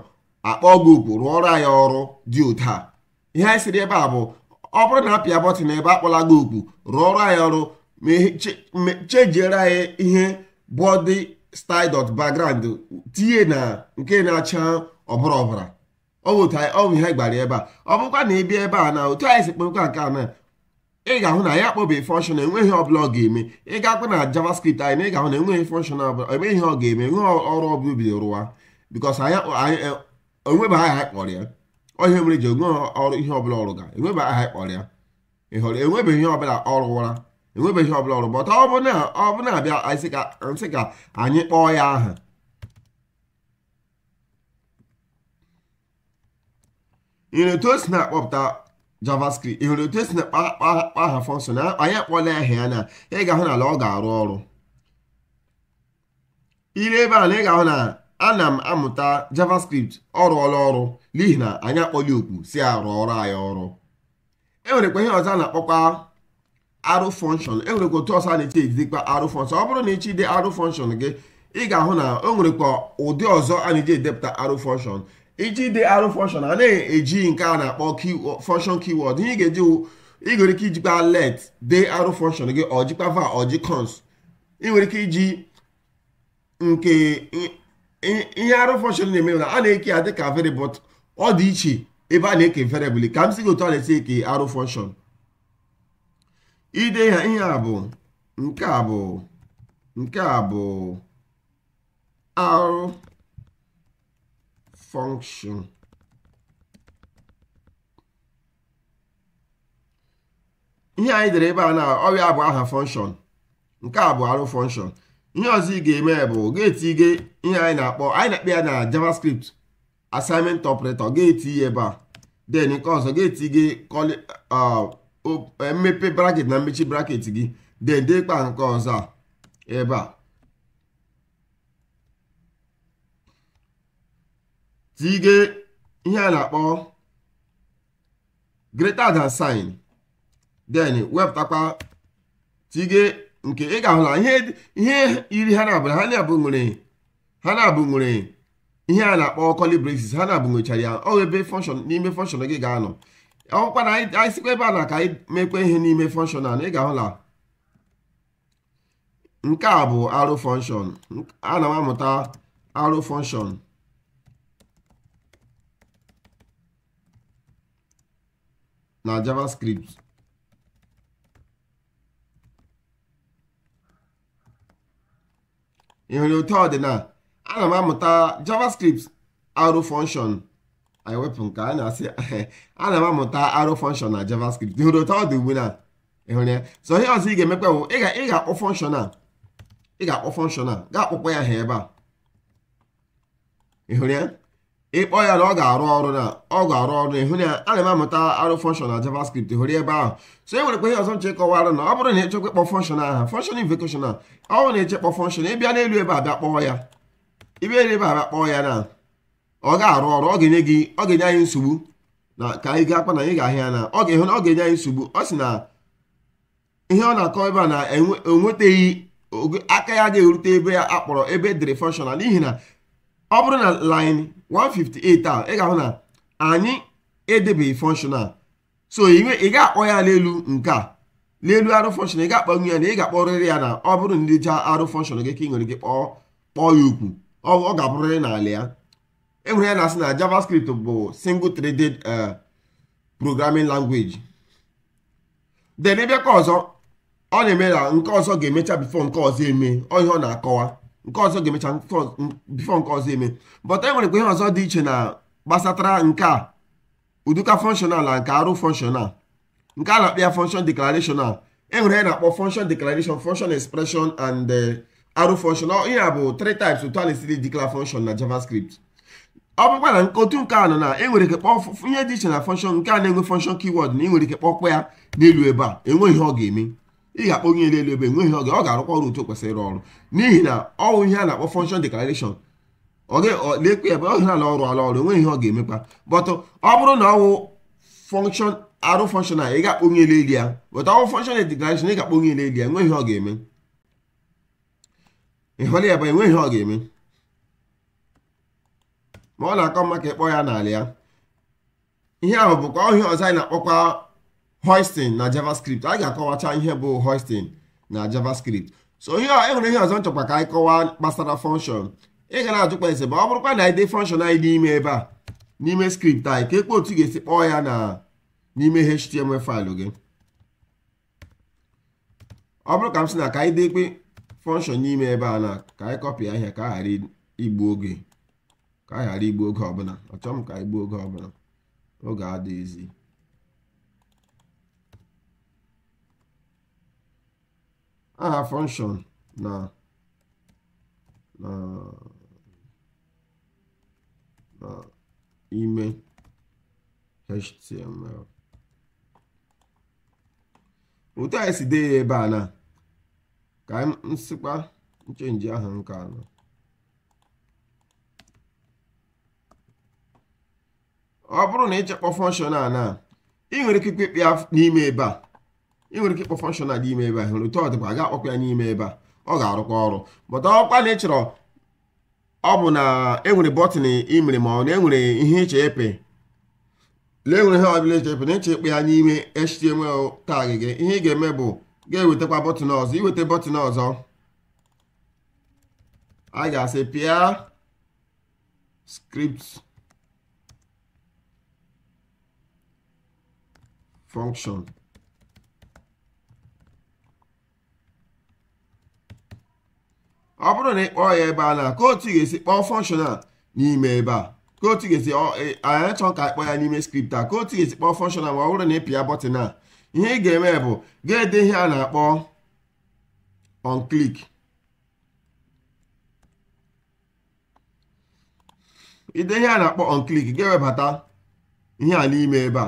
akpọọ gị okwu rụọrọ ọrụ dị ụta anyị sịrị ebe a bụ ọ bụrụ na apịa bọtịn ebe akpọla gị okwu ọrụ anyị ọrụ ma chejiere anyị ihe bọdị dọt background tinye na nke na-acha ọbara ọbara ọwụ ihe gbara ebe a ọ bụkwa na ịbịa ebe a na otu anyị si kpọkwa nke a na ị ga-ahụ na ya akpọbeghị function enweghị ọbụla ọ ga-eme ị ga-akwa na JavaScript anyị na ị ga-ahụ na enweghị function ọbụla emeghị ihe ọ ga-eme enweghị ọrụ ọbụla bido rụwa because e, onweba aha kpọrọ ya onye mere ji onwe ọrụ ihe ọbụla ọrụ ga enweba aha kpọrọ ya ị enwebeghị ihe ọbụla ọ rụwara enwebeghị ọbụla ọrụ gbọta ọ bụ na ọ bụ na-abịa nsị ka anyị kpọọ ya aha ịhụrụ otu o si na-akpọpụta javascript ịhụrụ otu o si na-akpa aha fọnshọn anyị akpọla ahịa ya na ị ga-ahụ na ala ọ ga-arụ ọrụ ire ebe a na ị ga-ahụ na ana m amụta javascript ọ rụọla ọrụ n'ihi na anyị akpọla okwu si arụ ọrụ anyị ọrụ e nwere kwa ihe ọzọ a na-akpọkwa arụ fọnshọn enwerekwa otu ọsọ a na-eche ejidekwa arụ fọnshọn ọ bụrụ na ịchị dị arụ fọnshọn gị ị ga-ahụ na o nwerekwa ụdị ọzọ a na-eji edepụta arụ fọnshọn iji dị arụ fọnshọn a na-eji nke a na-akpọ fọnshọn kiwọd ihe ị ga-eji nwere ike ijikwa let de arụ fọnshọn gị ọ jikwa va ọ ji cons ị nwere ike iji nke ihe arụ fọnshọn na-eme na a na-eke ya dịka variable ọ dị iche ebe a na-eke variable ka m si gị otu a na-esi eke arụ fọnshọn ide ihe a bụ nke a bụ nke a bụ ihe anyị dere ebe a na ọrịa bụ aha function nke a bụ arụ function ihe ọzọ ị ga-eme bụ ga-etinye ihe anyị na-akpọ anyị na akpị ya na javascript assignment operator ga-etinye ebe a den nke ọzọ ga-etinye mmepe e, braket na mmechi braket gị dedekpa nke ọzọ a ebe a tige ihe a na-akpọ greater than sign then wepụtakwa tige nke ị ga-ahụ na ihe iri ha na-abụ ha na-abụ nwere ha na-abụ nwere ihe a na-akpọ coli ha na-abụ nwechara ya ọ ebe fọnshọn n'ime fọnshọn gị ga-anọ ọkwa na anyị sikwa ebe a na ka anyị mekwa ihe n'ime fọnshọnal ị ga ahụla nke a bụ arụ fọnshọn ana m amụta arụ fọnshọn na javascript ị hụrụ ọdịna ana m amụta javascript arụ fọnshọn anyị wepụ nke a na-asị ana m amụta arrow fọnshọn na javascript hụrụ otu ọ dị ugbu na ịhụrụ ya so ihe ọzọ ị ga-emekwa bụ ị ga-akpọ fọnshọn a ị ga-akpọ fọnshọn a ga-akpọkpọ ya ha ebe a ịhụrụ ya ịkpọ ya na ọ ga-arụ ọrụ na ọ ga-arụ ọrụ ịhụrụ ya ana m amụta arrow fọnshọn na javascript hụrụ ebe ahụ so e nwere kwa ihe ọzọ m chekọwara na ọ bụrụ na ị chekwa ịkpọ function aha function invocation a ọ bụrụ na echekpọ function ịbịa n'elu ebe a bịa kpọọ ya ịbịa n'elu ebe a bịa kpọọ ya na ọ ga-arụ ọrụ ọ ga-enye gị ọ ga-enye anyị nsogbu na ka anyị gaa akpa na anyị ga-ahịa na ọ ga-ehu na ọ ga-enye anyị nsogbu ọ sị na ihe ọ na-akọ ebe a na enwetaghị aka ya ga-erute ebe a kpọrọ ebe e dịrị fọnshọnal n'ihi na ọ bụrụ na line 158 a ị ga-ahụ na anyị edebeghị fọnshọnal so ị ga-akpọ ya n'elu nke a n'elu arụ fọnshọn ị ga-akpọnwu ya na ị ga-akpọrịrị ya na ọ bụrụ na ndị jaa arụ fọnshọn gị ka ị nwere gị kpọọ ya okwu ọ ga-abụrịrị n'ala ya enwere ya na-asị na javascript bụ uh, single threaded uh, programming language then ebe ka ọzọ ọ na-eme na nke ọzọ ga-emecha bifo nke ọzọ eme ọ ihe ọ na-akọwa nke ọzọ ga-emecha bifo nke ọzọ eme but e nwerekwa ihe ọzọ dị iche na gbasatara nke a uduka functional na nke arụ functional nke a na-akpọ ya function e enwere ya na-akpọ function declaration function expression and uh, arụ function ihe a bụ three types otu a na-esiri declare function na javascript ọ bụkwa na nkọtu nke nọ na enwere ike kpọọ ihe dị iche na fọnshọn nke a na-enwe fọnshọn kiwọd na enwere ike kpọkwa ya n'elu ebe a enweghị ihe ọ ga-eme ị ga-akpọ onye n'elu ebe enweghị ọ ga-ọ ga-arụkwa ọrụ otu kwesịrị ịrụ ọrụ n'ihi na ọwụ ihe a na-akpọ fọnshọn deklarashọn lekwe ebe ọ ala ọrụ ala e ọrụ enweghị ihe ọ ga-emekwa bọtụ ọ bụrụ na ọwụ fọnshọn arụ fọnshọn a ị ga-akpọ onye n'elu ya bọtụ ọwụ fọnshọn deklarashọn ị ga-akpọ onye n'elu ya enweghị ihe ọ ga-eme ịhọrọ ya bụ e enweghị ihe ọ ga-eme ma ọ na-akọ mma ka ịkpọ ya n'ala ya ihe ahụ bụkwa ọhịa ọzọ anyị na-akpọkwa hoisting na javascript anyị ga-akọwacha ihe bụ hoisting na javascript so ihe ịhụrụ ihe ọzọ nchọkwa ka anyị kọwaa gbasara function ị ga na-ajụkwa ese ma ọ bụrụkwa na anyị dee function anyị n'ime ebe a n'ime script anyị ka ekpe otu ga-esi kpọọ ya na n'ime html faịlụ gị ọ bụrụ ka m sị na ka anyị dekpe function n'ime ebe a na ka anyị kọpịa ahịa ka a ghara igbu oge ka a ghara igbu oge ọbụla ọchọ m ka igbu oge ọbụla oge adịghịzi aha function na na na ime html otu anyị si dee ya ebe a na ka m sịkwa nchenji aha nke anọ ọ bụrụ na ịchekpọ fọnshọn a na ị nwere ike ikpe ya n'ime ebe a ị nwere ike ịkpọ fọnshọn a n'ime ebe a hụrụ otu ọ dịkwa aga akpọkwa ya n'ime ebe a ọ ga-arụkwa ọrụ bọta ọkwa na ị chọrọ ọ bụ na enwere bọtịn imere ma ọ na enwere ihe ịche epe lee e nwere ihe ọbụla eche epe na ịche ya n'ime html tag gị ihe ị ga-eme bụ ga-ewetakwa bọtịn ọzọ iweta bọtịn ọzọ a ga-asị pịa skript function ọ bụrụ na ị kpọọ ya ebe a na kootu ga-esi kpọọ function a n'ime ebe a ka ga-esi chọọ ka kpọọ ya n'ime skripta a ka ga-esi kpọọ function a ma ọ bụrụ na ị pịa bọtịn a ihe ị ga-eme bụ ga-ede ihe a na-akpọ on ide ihe a na-akpọ onklik ga-ewebata ihe a n'ime ebe a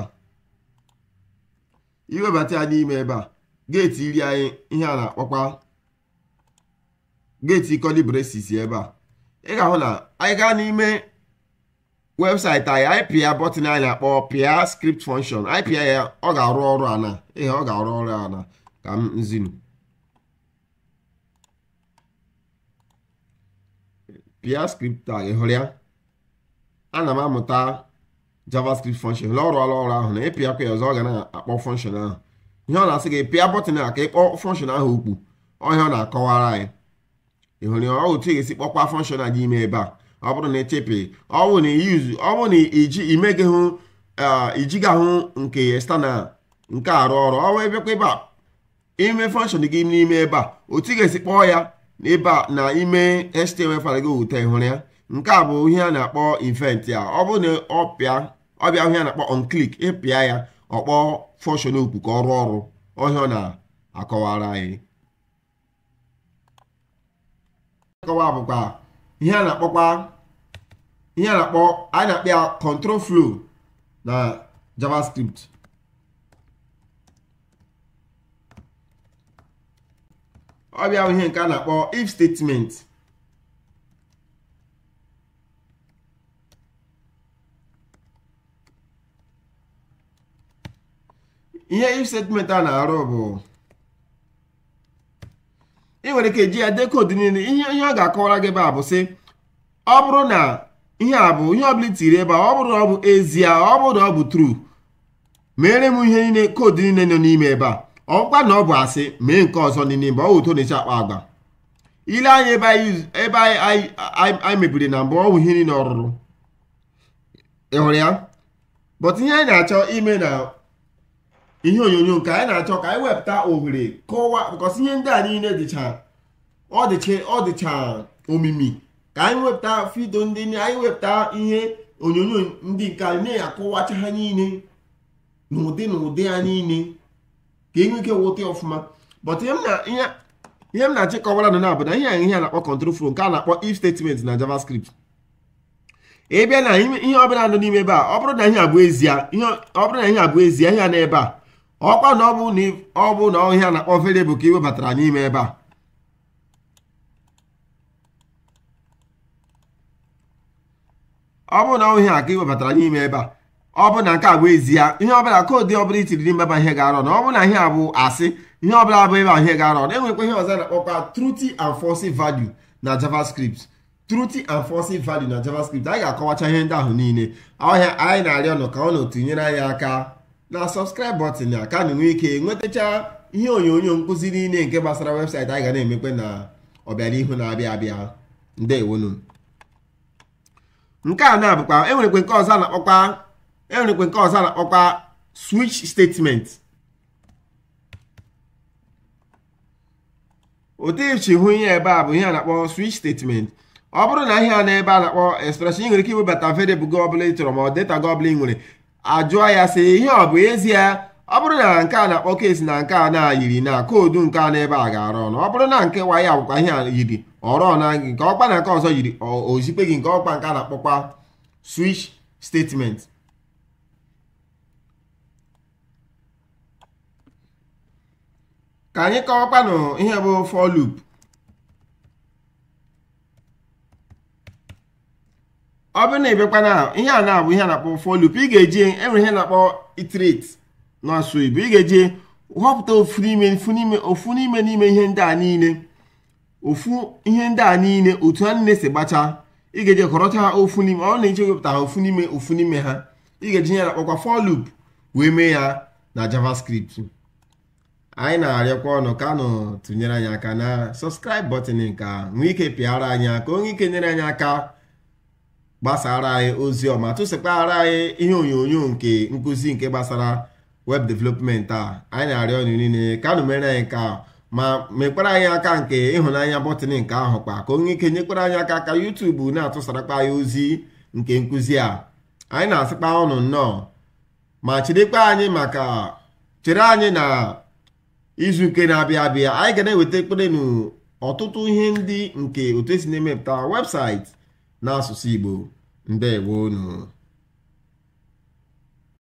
iwebata ya n'ime ebe a geeti iri anyị ihe a na-akpọkwa geeti kolibresis ebe a ị ga-ahụ na anyị gaa n'ime webụsaịtị anyị anyị pịa bọtịn anyị na-akpọ pịa skript function anyị ya ọ ga-arụ ọrụ ana ihe ọ ga-arụ ọrụ ana ka m nzinu pịa skript a ị hụrụ ya ana m amụta javascript function lọrụ ọrụ ọrụ ahụ na ịpịakwa ya ọzọ ọ ga na-akpọ function ahụ ihe ọ na-asị gị pịa bọtịn a ka ịkpọ function ahụ ukwu ọhịa ọ na-akọwara anyị ị ya ọ ga-esi kpọkwa function a ime ebe a ọ bụrụ na echepị ọ na iyuzu ọ bụrụ na iji imeghị hụ ijighị ahụ nke external nke arụ ọrụ ọ wee bịakwa ebe a ime function gị n'ime ebe a otu ga-esi kpọọ ya n'ebe a na ime html fara gị ụtọ ịhụrụ ya nke a bụ ihe a na-akpọ event ya ọ bụrụ na ọ pịa ọ ọbịa ọhịa na-akpọ onclick ịpịa ya ọkpọ fọshọn okwu ka ọrụ ọrụ ọhịa ọ na-akọwara anyị akọwa bụkwa ihe a na-akpọkwa ihe a na-akpọ a na-akpọ ya control flow na javascript ọbịa ihe nke a na-akpọ if statement ihe if a na-arụ bụ ị nwere ike eji ya dekoodu niile ihe ọ ga-akọwara gị ebe a bụ sị ọ bụrụ na ihe a bụ ihe ọbụla itiri ebe a ọ bụrụ na ọ bụ ezie ọ bụrụ na ọ bụ true mere m ihe niile koodu niile nọ n'ime ebe a ọkwa na ọ bụ asị mee nke ọzọ n'ime mgbe ọ wụto na-eche akpa agba ile anya ebe anyị mebiri na mbụ ọnwụ ihe niile ọrụrụ ị ya bọt ihe anyị na-achọ ime na ihe onyonyo nke anyị na-achọ ka anyị wepụta ohere kọwaa because ihe ndị a niile dịcha ọ dịcha ọ dịcha omimi ka anyị wepụta fido ndị anyị wepụta ihe onyonyo ndị nke anyị na-akọwacha ha niile n'ụdị n'ụdị ha niile ka enwe ike wụta ọfụma but ihe m na-achị kọwara nọ na-abụ na ihe ihe a na-akpọ control flow nke a na-akpọ if statement na JavaScript ị bịa na ihe ọbụla nọ n'ime ebe a ọ bụrụ na ihe abụ ezie ọ bụrụ na ihe abụ ezie ihe a na ebe a ọkwa na ọ bụ na ọhịa na-akpọ variable ka webatara n'ime ebe a ọ bụ na ọhịa ka iwebatara n'ime ebe a ọ bụ na nke a bụ ezie ihe ọbụla koodu ọbụla itiri n'ime ebe ihe ga-arọ na ọ bụ na ihe a bụ asị ihe ọbụla bụ ebe ihe ga-arọ na-enwekwa ihe ọzọ na-akpọkwa truty and false value na javascript truty and false value na javascript anyị ga-akọwacha ihe ndị ahụ niile ọhịa anyị na-arịọ nụ ka ọ na nyere anyị aka na subscribe button a ka anyị nwee ike nwetacha ihe onyonyo nkụzi niile nke gbasara webụsaịtị anyị ga na-emekwe na ọbịanihu na-abịa abịa ndewonu nke a na-abụkwa enwerekwe nke ọzọ na-akpọkwa enwerekwe nke ọzọ na-akpọkwa switch statement hụ ihe ebe a bụ ihe a na-akpọ switch statement ọ bụrụ na ihe a na ebe a na-akpọ expression ị nwere ike iwebata variable gị ọbụla ị chọrọ ma ọ data gị ị nwere ajụọ ya sị ihe ọ bụ ezie ọ bụrụ na nke a na-akpọ kesi na nke a na-ayiri na koodu nke a na-ebe a ga arọ ọnụ ọ bụrụ na nke wa ya bụkwa ihe a yiri ọrụ na gị nke ọkpa na nke ọzọ yiri ozikpe gị nke ọkpa nke a na-akpọkwa switch statement ka anyị kọwakwanụ ihe bụ for ọ bụrụ na ịbịakwa na ihe a na-abụ ihe a na-akpọ for loop ị ga-eji enwere ihe na-akpọ iterate n'asụ Igbo ị ga-eji họpụta ofu n'ime ofu n'ime n'ime ihe ndị a niile ofu ihe ndị a niile otu ha niile si gbacha ị ga-eji kọrọcha ha ofu n'ime ọ na eji wepụta ha ofu n'ime ofu n'ime ha ị ga-eji ihe na-akpọkwa for wee mee ya na JavaScript anyị na-arịọkwa ọnụ ka tụnyere anyị aka na sọskraib button nke a nwee ike pịara anyị aka onye ike nyere anyị aka gbasara anyị ozi ọma tụsịkwara anyị ihe onyonyo nke nkụzi nke gbasara web development a anyị na-arịọ ọnụ niile ka nụ mere anyị ka ma mekwara anyị aka nke ịhụnanya bọtịn nke ahụ kpa ka onye ike nyekwara anyị aka ka yutubu na atụsarakpa anyị ozi nke nkụzi a anyị na-asịkpa ọnụ nnọọ ma anyị maka chere anyị na izu nke na-abịa abịa anyị ga na-eweta ekpere n'ọtụtụ ihe ndị nke otu esi na-emepụta webụsaịtị n'asụsụ Igbo ndewonu